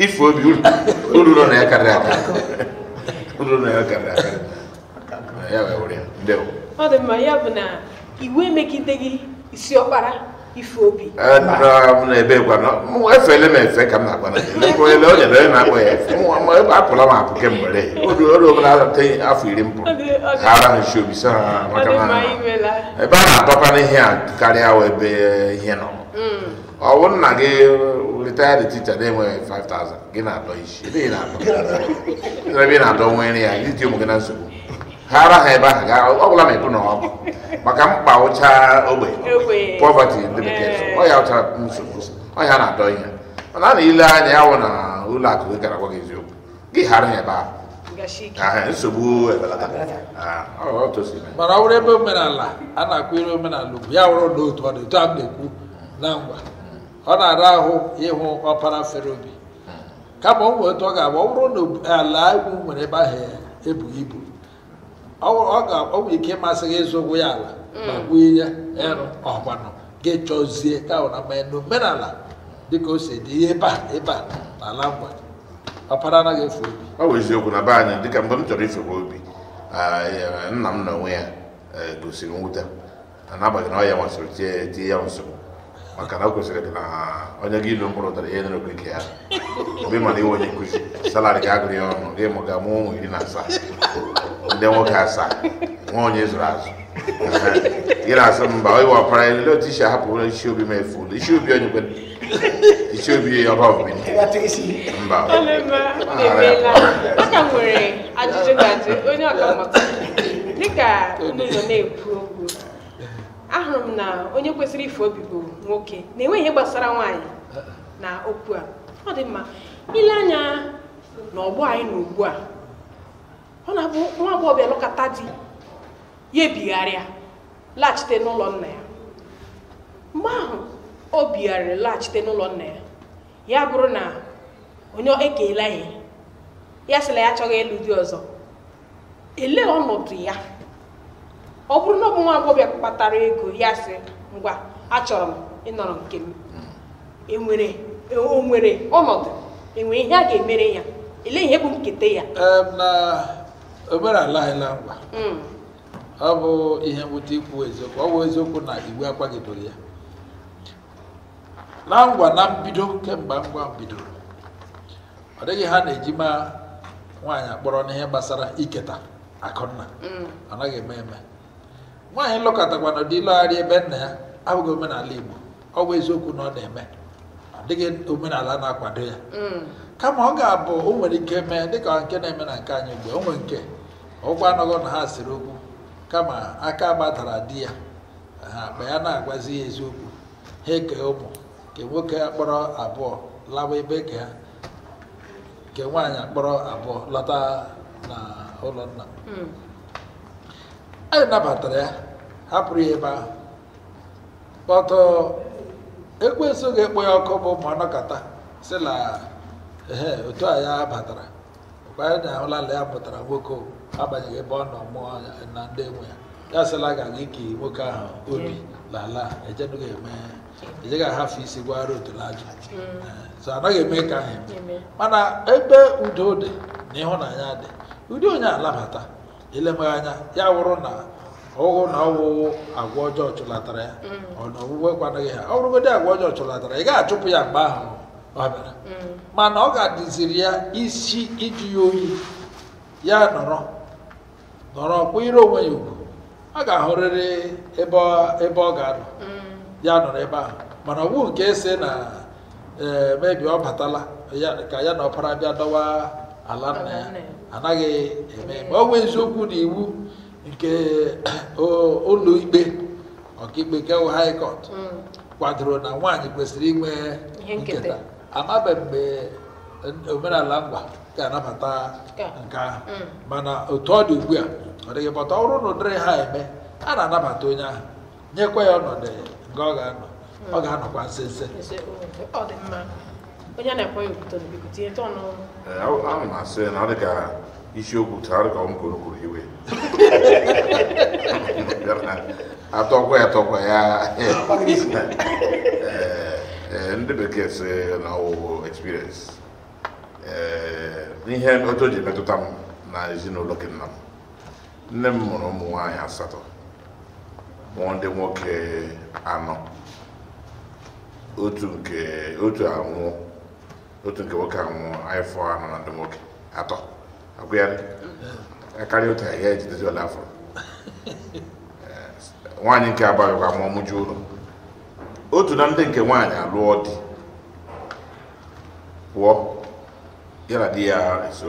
ife obi uru nọ na ya karịrị akarị uru na ya karịrị akarị ya were ya ndewo ọ dị mma ya bụ na iwu emegideghị isi ọkpara ife obi efele m efe ka m na-agba onye na na ya efe apụla m apụ ata afọ iri m pụrụ ara nshi obi so ha maka ebe a na-atọpa n'ihe a karịa ebe ihe nọ mm. ọwụ nna gị retired teacher na-enweghị 5000 gị na-adọ isi ebe ị na-adọ nwere ya iji ụmụ gị na nsogbu ha ara ha ebe ahụ gaa ọ bụla ma ebu na ọgụ maka mkpa ụcha ogbe pọvati ndị bekee ọ ya ụcha nsogbu ọ ya na-adọ ihe mana a anya ya na ụlọ gị gara gwa gị eziokwu gị ghara ha ebe ahụ nsogbu mana ọ ebe omenala a na-akụ ire omenala ugwu ya wụrụ na otu ọ dị a na ọ na-ara ahụ ịhụ ọpara fere obi kama ọ nwee ọ ga agba ọ bụrụ na ala egwu nwere ebe ahụ ebughị ibu ọ ga-ọ nwere ike ịmasị gị ịzụ ya ala ma ya mm. ịrụ ọgbanụ gị chọzie kawụ na mmanya n'omenala dịka o si dị ihe ebe a ebe a na ala ngwa ọpara anaghị efu obi ọ bụ eziokwu na be anyị dịka mgbe m chọrọ ifekwa obi nna m na onwe ya e, gosiri mwute na n'abalị na ọ ya masịrị tie ya nsogbu makara kusire dina onye gi lo mboro tare yene kwe kia obi mali wonye kuzi salari ga agri ono ge mo ga mu mu ina sa inde mo ka sa wonye zurazu ira sa mba oi wa para ile ti sha hapo ile shi obi me fu ile shi obi onye kwe ile shi obi ya ba obi ni ya ti si mba ale ma ebe la aka nwere ajụjụ ahụrụ m na onye kwesịrị ife obi bụ nwoke na enweghị ihe gbasara nwaanyị na okwu a ọ dị mma ile anya na ọgbọ anyị na ugbu a ọ na-abụ nwa agbọghọbịa lụkọta di ya ebigharịa laghachite n'ụlọ nna ya mgbe ahụ o bigharịrị laghachite n'ụlọ nna ya ya bụrụ na onye ekeela ihe ya sịla ya achọghị ịlụ di ọzọ elee ọnọdụ ya ọ bụrụ na ọ bụ nwa agbọghọ kpatara ego ya sị ngwa achọrọ m ịnọrọ nke m enwere onwere e ọnọdụ enwere ihe a ga-emere ya ele ihe bụ nketa ya na omenala anyị na mkpa hmm. ọ bụ ihe mwute ikwu eziokwu ọ bụ eziokwu na iwu akwagidoro ya na ngwa na mbido kemgbe ngwa bidoro ọ dịghị ha na-eji ma nwaanyị akpọrọ n'ihe gbasara iketa akụnna hmm. ọ naghị eme eme nwaanyị lụkọtakwana dị ịlọgharị ebe nna ya abụghị omenala Igbo ọ bụ eziokwu na ọ na-eme ọ dịghị omenala na-akwado ya mm. kama ọ ga-abụ o nwere ike mee dịka nke na-eme na nke anyị mgbe o nwee nke ụkwụ anọghọ na ha siri okwu kama aka gbadara di ya ha akpa ya na-agwazi ya eziokwu ha eke ụmụ ke nwoke akpọrọ abụọ lawa ebe ke ha nke nwaanyị akpọrọ abụọ lọta na ụlọ nna mm. anyị nabatara ya hapụrụ ya ebe ahụ kpọtọ ekwensu ga-ekpo ya ọkụ bụ ma nọkọta si na ehe otu a ya batara kwanye na ụlala ya pụtara nwoke abanyeghị ebe ọ nọ mụọ na ndị enwe ya ya sịla ga aga ike nwoke ahụ obi lala ejeghị ahafụ isi gwara otu n'ajụ mm. eh, so anaghị eme ka ahụ eme mana ebe udo dị na ịhụnanya dị ụdị onye alabata ilemeghe anya ya wụrụ na ụụ na ọwụwụ agwa ọjọọ chụlatara ya mm. ọnọwuwe kwanaghị ha ọ agwa ọjọọ chụlatara ị ga-achụpụ ya mgbe ahụ ọ bịara mm. mana ọ ga-adịziri ya isi iji ya oyi ya nọrọ nọrọ ire onwe ya ugwu a ga-ahụrịrị ebe ọ ga-anọ mm. ya nọrọ ebe ahụ mana ọ nke ese na ee mebi ọ batala ka ya na ọpara bịa dọwa ala nna ya anaghị eme ma ọ nwee eziokwu na iwu nke ụlọ ikpe ọkaikpe kewu high court mm. kwadoro na nwaanyị kwesịrị inwe nketa amabe mgbe omenala mgba ga-anabata nke ahụ mm. mana otu ọ dị ugbu a ọ dịghị pọta ọ bụrụ na ụdịrị ha eme a na-anabata onye ahụ nyekwa ya ọnọdụ nke ọ ga-anọ mm. ọ ga-anọkwa nsense onye na-ekwe ya okwuto biko tinye tọnụ eh, ahụ isiokwu chara ka ọ m kwuru iwe atọkwa ya atọkwa ya eh, eh, ndị bekee si na ọwụwụ experience eh, ihe otu o ji metụta m na ezinụlọ gị nna m nne m mụrụ ụmụ nwaanyị asatọ mụọ ndị nwoke anọ otu nke otu anwụọ otu nke nwoke anwụ anyị fọ anọ na ndị nwoke atọ agbịarị karịa otu ahịa ejidezi ọla afọ nwaanyị nke abaghịkwa ma ọmụju ụlọ otu na ndị nke nwaanyị alụọ di pụọ ya na di ya ese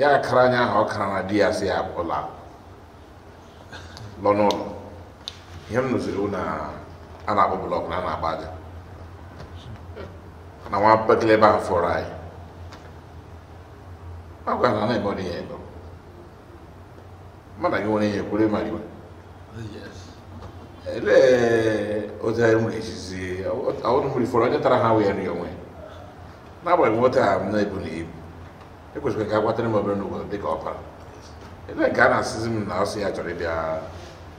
ya kara anya ahụ ọ kara na di ya si ya pụla lọ n'ụlọ ihe m nụziri na a na-akpọ blọk na a na-agba aja na nwa bekele ebe ahụ fọrọ anyị agora não é body here go. Mada go ni ekure mari Yes. Ele o da mu le sisi. Awon mu le foro ja tara ha we ni onwe. Na bo mo ta am na ibu ni ibu. E ko se ka kwa tani mo no go de copa, opa. Ele ga na sizim na so ya jore bia.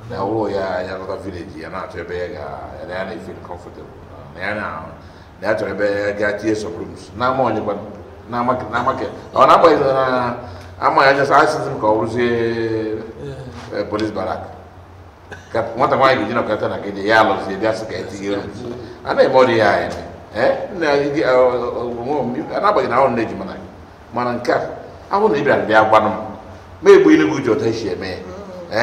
Na rua ya ya no village ya na to be ga. Ya na feel comfortable. né não, na na to be ga tie some rooms. Na mo ni kwa n'amakɛ n'amakɛ ɔ n'a bɔ ɛɛ an ma yajɛ sa a sinsin ka olu se ɛɛ polisi barak ka kuma ta kuma yi jina ka taa na kɛ y'a lɔ se bi a se ka e ti yɛlɛ ana ye mɔdi y'a yɛlɛ ɛ eh? eh, na yi ɛ ɔ n'a bɔ ɛɛ n'aw ne jumɛn a bɛ a ba nɔ mɛ e bɔ ne b'u jɔ ta siɛ mɛ ɛ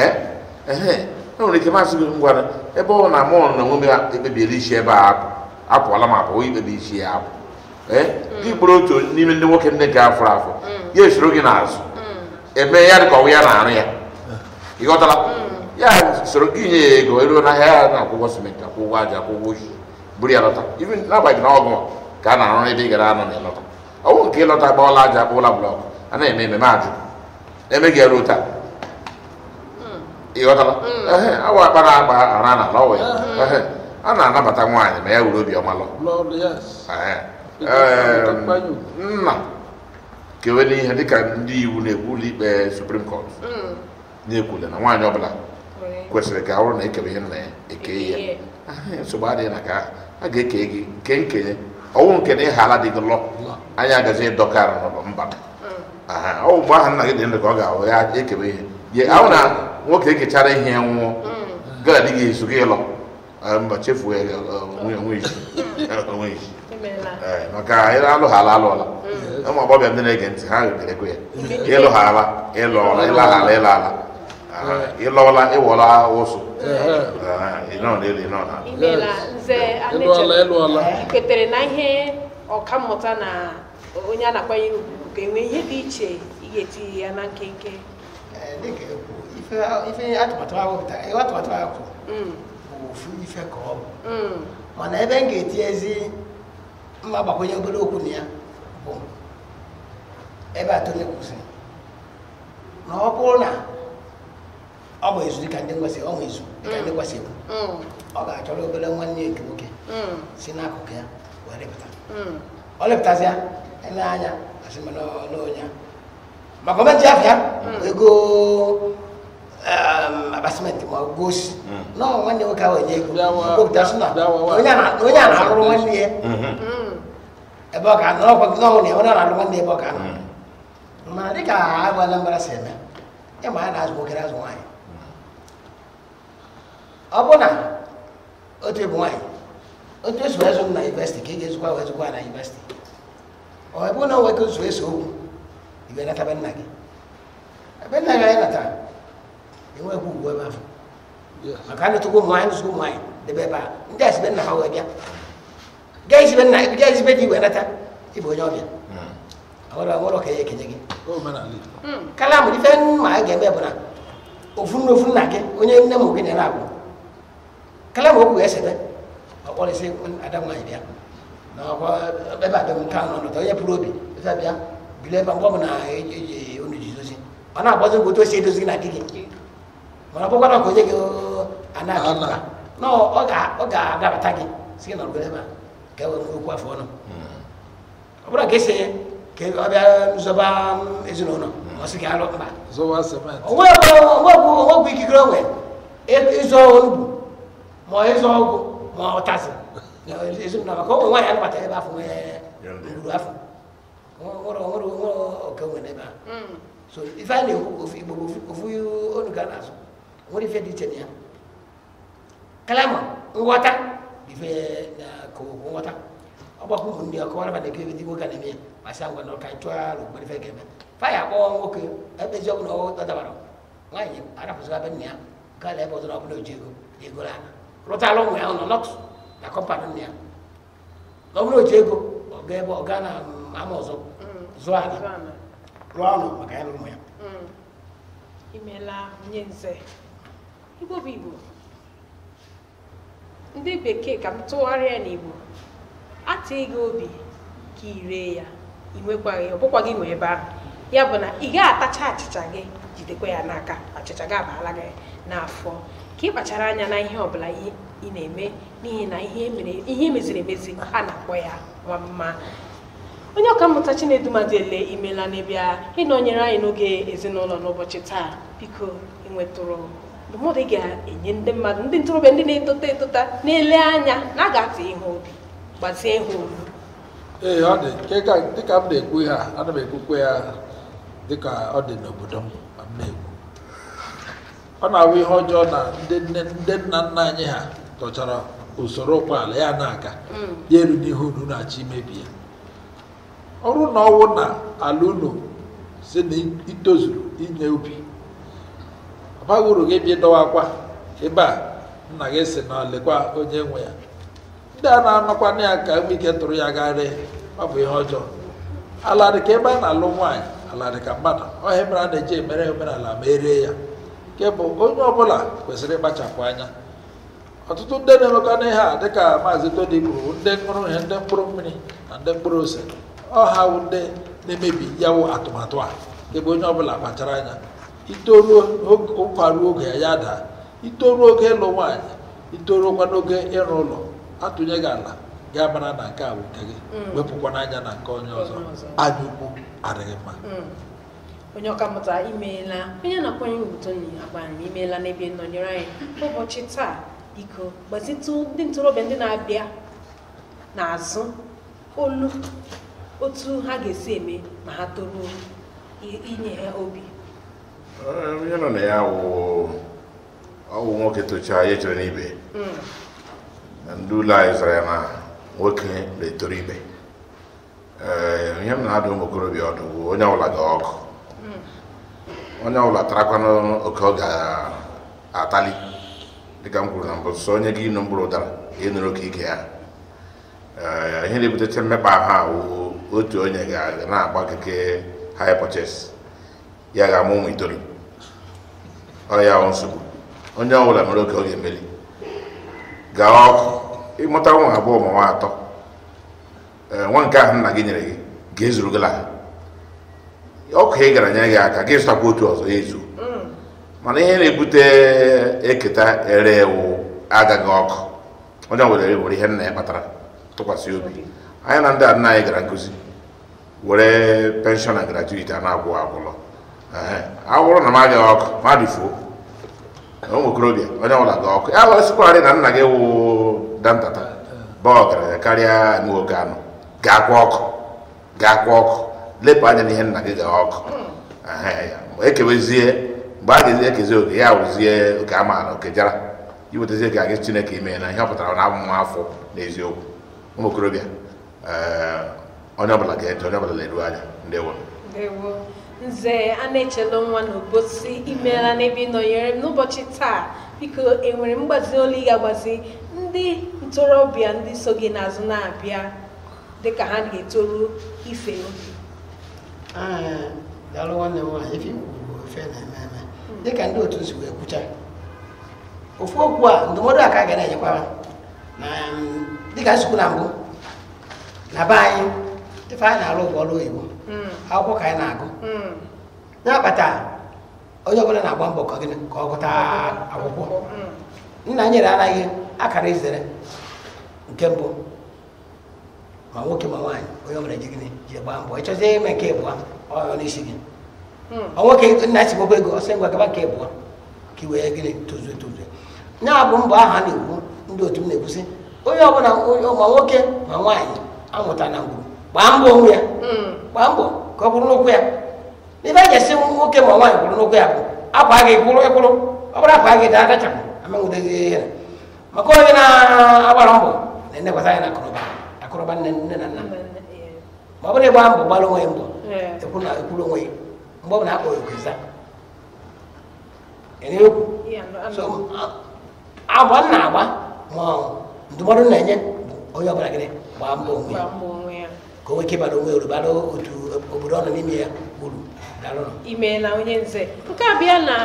ɛhɛn n'aw ne jama sigi n gwana na mɔ na ŋun bɛ e bɛ bi e siɛ dị eh? gburu otu n'ime ndị nwoke ndị ga afọ afọ mm. ya esoro gị n'azụ mm. eme ya dị ka ọnwụ ya na-arụ ya eh. ị ghọtara mm. ya soro gị nye ya ego eruo n'ahịa ya na-akwụ ụgwọ simenti akwụ ụgwọ aja akwụ ụgwọ oji buru ya lọta ibi n'abalị na ọgụ ka a na-arụ ebe ị gara anọ na ịlọta ọnwụ nke ịlọta gba ọla aja akpụ ụla blọk a na-eme ememe ajụ eme gị eruo taa ị ehe awa akpa na agba ara na ala ya a na-anabata nwaanyị ma ya were obiọma lọ nna kewere ihe dịka ndị iwu na-ekwu ụlọ ikpe suprim kọt na-ekwule na nwaanyị ọbụla kwesịrị ka ọ na ekewe ihe na eke ya nsogbu adịghị na ka a ga-eke gị nke nkenye ọnwụ nke na ịha ala dị gị lọ anyị agazi ịdọkarị n'ụlọ mba ọwụ mgbe aha nna gị dị ndụ ka ọ ga-ahụ ya ekewe ihe ye ahụ na nwoke ekechara ihe ya nwụọ gaa gị ezu gị ịlọ mba chefuo ya onwe isi Eh, maka alụghara alụọla hmm. ụmụ agbọghọ ndị na-ege ntị ha ga-ekwe ya ịlụghara ịlụọla ịlaghara ịla ala ịlọọla ịwọla ụsụ kwetere na ihe mmụta na onye a na-akwanyere ugwu ga-enwe ihe dị iche ga-etinye ya na nkenke eh, atụmatụ ahụ hmm. bụ ife ka ọ bụ hmm. mana ebe m ga ma ba ko nyagbe do ko niya ko e ba to ne kusin na o ko na o mo izu ka ndengwa se o mo izu ka ndengwa se mm o ga to lo bele wan ni ke oke mm sina ko ke wa le bata mm o le bata sia anya asi me no no nya ma ko ma ti afia ego abasement ma gosi no nwanne nwoke ahụ enye ego onye a na-arụrụ nwanne ya Ebọka ọ ga gị n'ọnwụ na enwere ọra nwanne ebe ọ ga mana hmm. dị ka agwala mbara si eme ịma a na-azụ nwoke na-azụ ọ bụ na otu ebu otu ezụ na ka ị ga-ezukwa wee a na yunivesiti ọ ebe na nwoke na be nna ebe anyị natara enweghị ugwu ebe ahụ maka a netụkwa ụmụ nwaanyị debe ebe a ndị a be ha bịa gaa izibe nna gaa izibe ịbụ onye ọbịa awara awara ka ya ekenye gị hmm. kalam ife ma a ga-eme bụ na ofu nne nna gị onye nne m gị na-ere agwụ kalam okwu ga-esebe ọkpọrịsị ada nwaanyị na ebe onye pụrụ obi ife bịa ọ bụ na eji e, e, na otu o si edozi gị na di gị mana ka onye gị ọ ga-adabata gị gị ebe a kẹwàá fún okú àfọwọ́ náà ọbúrò kẹsẹ̀ kẹ ọbẹ̀ nzọba ezinụlọ náà ọsì kẹ alọ mba owó ọgbọ owó gbé kíkiri ọwẹ ịzọ olugbu ma ịzọ ọgwụ ma ọtazị ezinụlọ maka ọ nwaanyị anabata ebe afọ nwee ruru afọ nwere nwere nwere ọka nwere ebe a so ife a na-ekwu ofu igbo ofu onu ga na-azụ nwere ife dị iche na ya kalama nghọta ife na ko wata ndị ku hundi ko wala bade kebe digo gane me masango no kai twa ru bari fege me fa ya ko ngo ke ebe jogu no ta ta baro ngai ara fu sa ya ka le bo na bulo ego la ro lo mu ya no not na ko pa dunia lo bulo jego o ge bo ga na amozo zuana ruano maka ya lo mu ya imela nyenze ndị bekee ka m tụgharịa ya n'igbo atịghị gị obi ka ị ree ya ị ọbụkwa ọ bụkwa gị nwe ebe ahụ ya bụ na ị gaghị atacha achịcha gị jidekwa ya n'aka achịcha gị abaala gị n'afọ ka ị kpachara anya na ihe ọbụla ị na-eme n'ihi na ihe meziri emezi a na-akpọ ya nwa mma onye mmụta ọkammụta chinedumadiele imela n'ebe a ịnọnyere anyị n'oge ezinụlọ n'ụbọchị taa biko ịnwetụrụ ndụmọdụ ị ga-enye ndị mmadụ ndị ntorobịa ndị na-etota etota na-ele anya na a ga-atụ ihe obi gbazie ihe obi ee ọ dị dịka m na-ekwu ha ana m ekwukwe ya dịka ọ dị n'obodo m ma m na-ekwu ọ na-awụ ihe ọjọọ na ndị nna nna anyị ha tọchara usoro ụkpọala ya na-aga mm. ya elu n'ihe unu na-achọ imebi ya ọrụ na ọnwụ na ala unu si na itozuru inye ubi baghị uru gị bi dọwakwa ebe a nna gị si na lekwa onye nwe ya ndị a na-anọkwana ya ka nwe ike tụrụ ya gagharị ọ bụ ihe ọjọọ ala dị ka ebe a na-alụ nwaanyị ala dị ka mmadụ ọhịa mere a na-eji emere omenala ma erie ya nke bụ onye ọbụla kwesịrị ịkpachapụ anya ọtụtụ ndị na-emekwana nihe a dịka maazị todi kwuru ndị mkpụrụ ihe ndị mkpụrụ mmiri na ndị mkpụrụ ose ọha ndị na-emebi yawo atụmatụ a nke bụ onye ọbụla kpachara anya itoruo ụkwa oge ya daa itoruo oge ịlụ nwaanyị itoruokwa n'oge ịrụ ụlọ atụnye gị ala gị mara na nke a gị mm. wepụkwa n'anya na nke onye ọzọ anya ukwu adịghị mma mm. onye ọkammụta imeela onye na-akwanye uto agbanyere imeela n'ebe nọnyere anyị ụbọchị taa biko gbazitụ ndị ntorobịa ndị na-abịa n'azụ olu otu ha ga-esi eme ma ha toruo inye ha obi onye eh, nọ na ya ọwụ nwoke tocha ya echere n'ibe na ndị ya na nwoke na-etoro ibe ihe m na-adụ ụmụ okorobịa ọdụ bụ onye ọbụla ga ọkụ onye ọbụla tarakwanụ oke ọ ga-atali dịka m na mbụ sọ onye gị ịnụ mkpụrụ ụdara ịnụrụ oke ike ya ihe na-ebutecha mmekpa ahụ otu onye ga na-agba keke high purchase ya ga-amụ ụmụ itoolu ọ ya hụ nsogbu onye ọ mere oke oge ga gaa ọkụ ịmụta ụmụ abụọ ma nwa atọ nwa nke ahụ nna gị nyere gị ga-ezuru gị laha ọkụ ị gara nye gị aka gị zụtakwa otu ọzọ ezu mana ihe na-ebute eketa ere ewu agaghị ọkụ onye ọ bụla were ihe nna ya kpatara tụkwasị obi anyị na ndị nna anyị gara nkụzi were penshọn na gratuiti a na-agwụ agwụlọ awụrụ na m ga- ọkụ ma dịfuo ụmụ okorobịa onye ọbụla gị ọkụ ya wụrụsịkwarị na nna gị wụ dantata ba karịa nwoke anụ ga-akwa ọkụ ga ọkụ lepụ anya na ihe nna gị ga ọkụ ekewezie mgbe a ga-ezi ekezi oge ya wụzie oke amaala oke jara iwetazie ka gị chineke ime na ihe ọpụtara na abụmụ afọ n'eziokwu ụmụ okorobịa onye ọbụla ga-eje onye ọbụla leruo anya ndewo nze a na-echelu nwa n'obosi imeela n'ebe ị nọnyere m n'ụbọchị taa biko enwere mgbazi olu ị ga-agbazi ndị ntorobịa ndị so gị n'azụ na-abịa dịka ha ga-etoru ife obi daalụ nwanne m nwaanyị ife iwu ife na-eme dịka ndị otu si wee kwucha ofu okwu a ndụmọdụ a ka a ga na-enyekwara na dịka nsogbu na mbụ na be anyị ife anyị na-alụ bụ ọrụ oyibo akwụkwọ ka anyị na-agụ ya kpata onye ọbụla na-agba mbọ ka ọ gụta akwụkwọ nna nyere anaghị akara izere nke mbụ ma nwoke ma nwaanyị onye ọbụla ji gịnị ji gbaa mbọ ịchọzie ime nke ịbụọ ọyọ n'isi gị Ọ nwoke nna si gbogbo ego ọsọ ngwa gaba nke ịbụọ ka iwe wee gịnị tozuo tozuo ya bụ mbọ aha na-ekwu ndị otu m na-ekwusi onye ọbụla ma nwoke ma nwaanyị amụta na ngwuru gbaa mbọ onwe ya gbaa mm. mbọ ka ọ bụrụ n'okwu ya n'ibe a ga-esi nwoke ma nwaanyị bụrụ n'okwu ya bụ akwa gị kwụrụ ịkwụrụ ọ bụrụ akwa gị daa adachapụ amanwudozi ihe maka onye na-agbara mbọ na-enekwata ya na akụrụba akụrụba nne nne na nna ma ọ bụrụ ịgba mbọ gbara onwe ya mbọ ekwuru onwe ya mgbe ọ bụla akpọ agba m agba ma ndụmọdụ na-enye bụ onye ọbụla gịnị gbaa mbọ onwe ya koweke bara onwe uru otu obodo ọnọ n'ime ya uru imeela onye nze nke a bịa na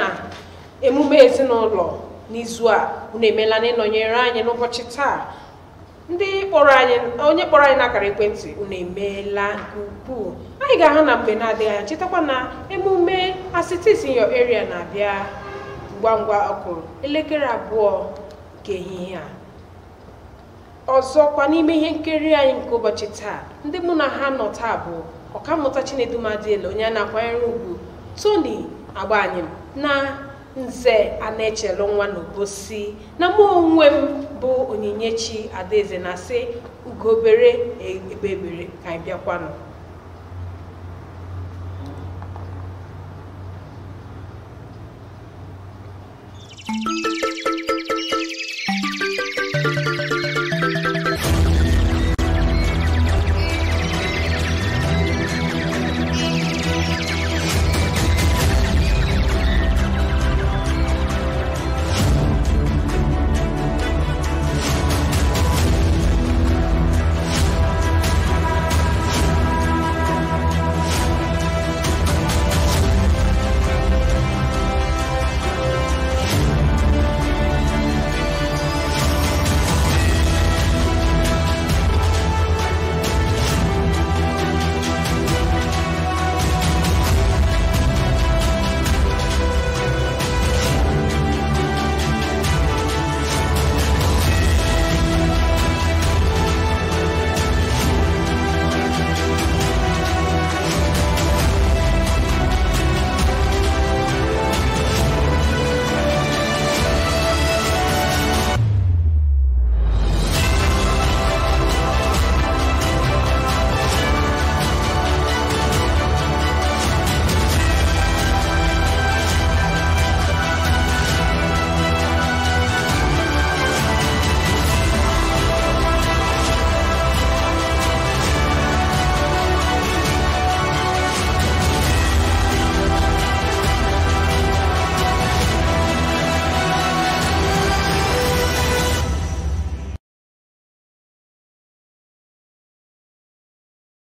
emume ezinụlọ n'izu a unu emeela na ịnọnyere anyị n'ụbọchị taa ndị kpọrọ anyị onye kpọrọ anyị n'akara ekwentị unu emeela nke ukwuu anyị ga-ahụ na mgbe na-adịghị anya chetakwa na emume asitis in your area na-abịa ngwa ngwa ọkụrụ elekere abụọ nke ehihie a ọzọkwa n'ime ihe nkiri anyị nke ụbọchị taa ndị mụ na ha nọ taa bụ ọkammụta chinedumadiele onye a na-akwanyere ugwu toni agbanyem na nze a na-echelu nwa n'obosi na mụ onwe m bụ onyinyechi adaeze na-asị ugobere ebebere ka anyị bịakwanụ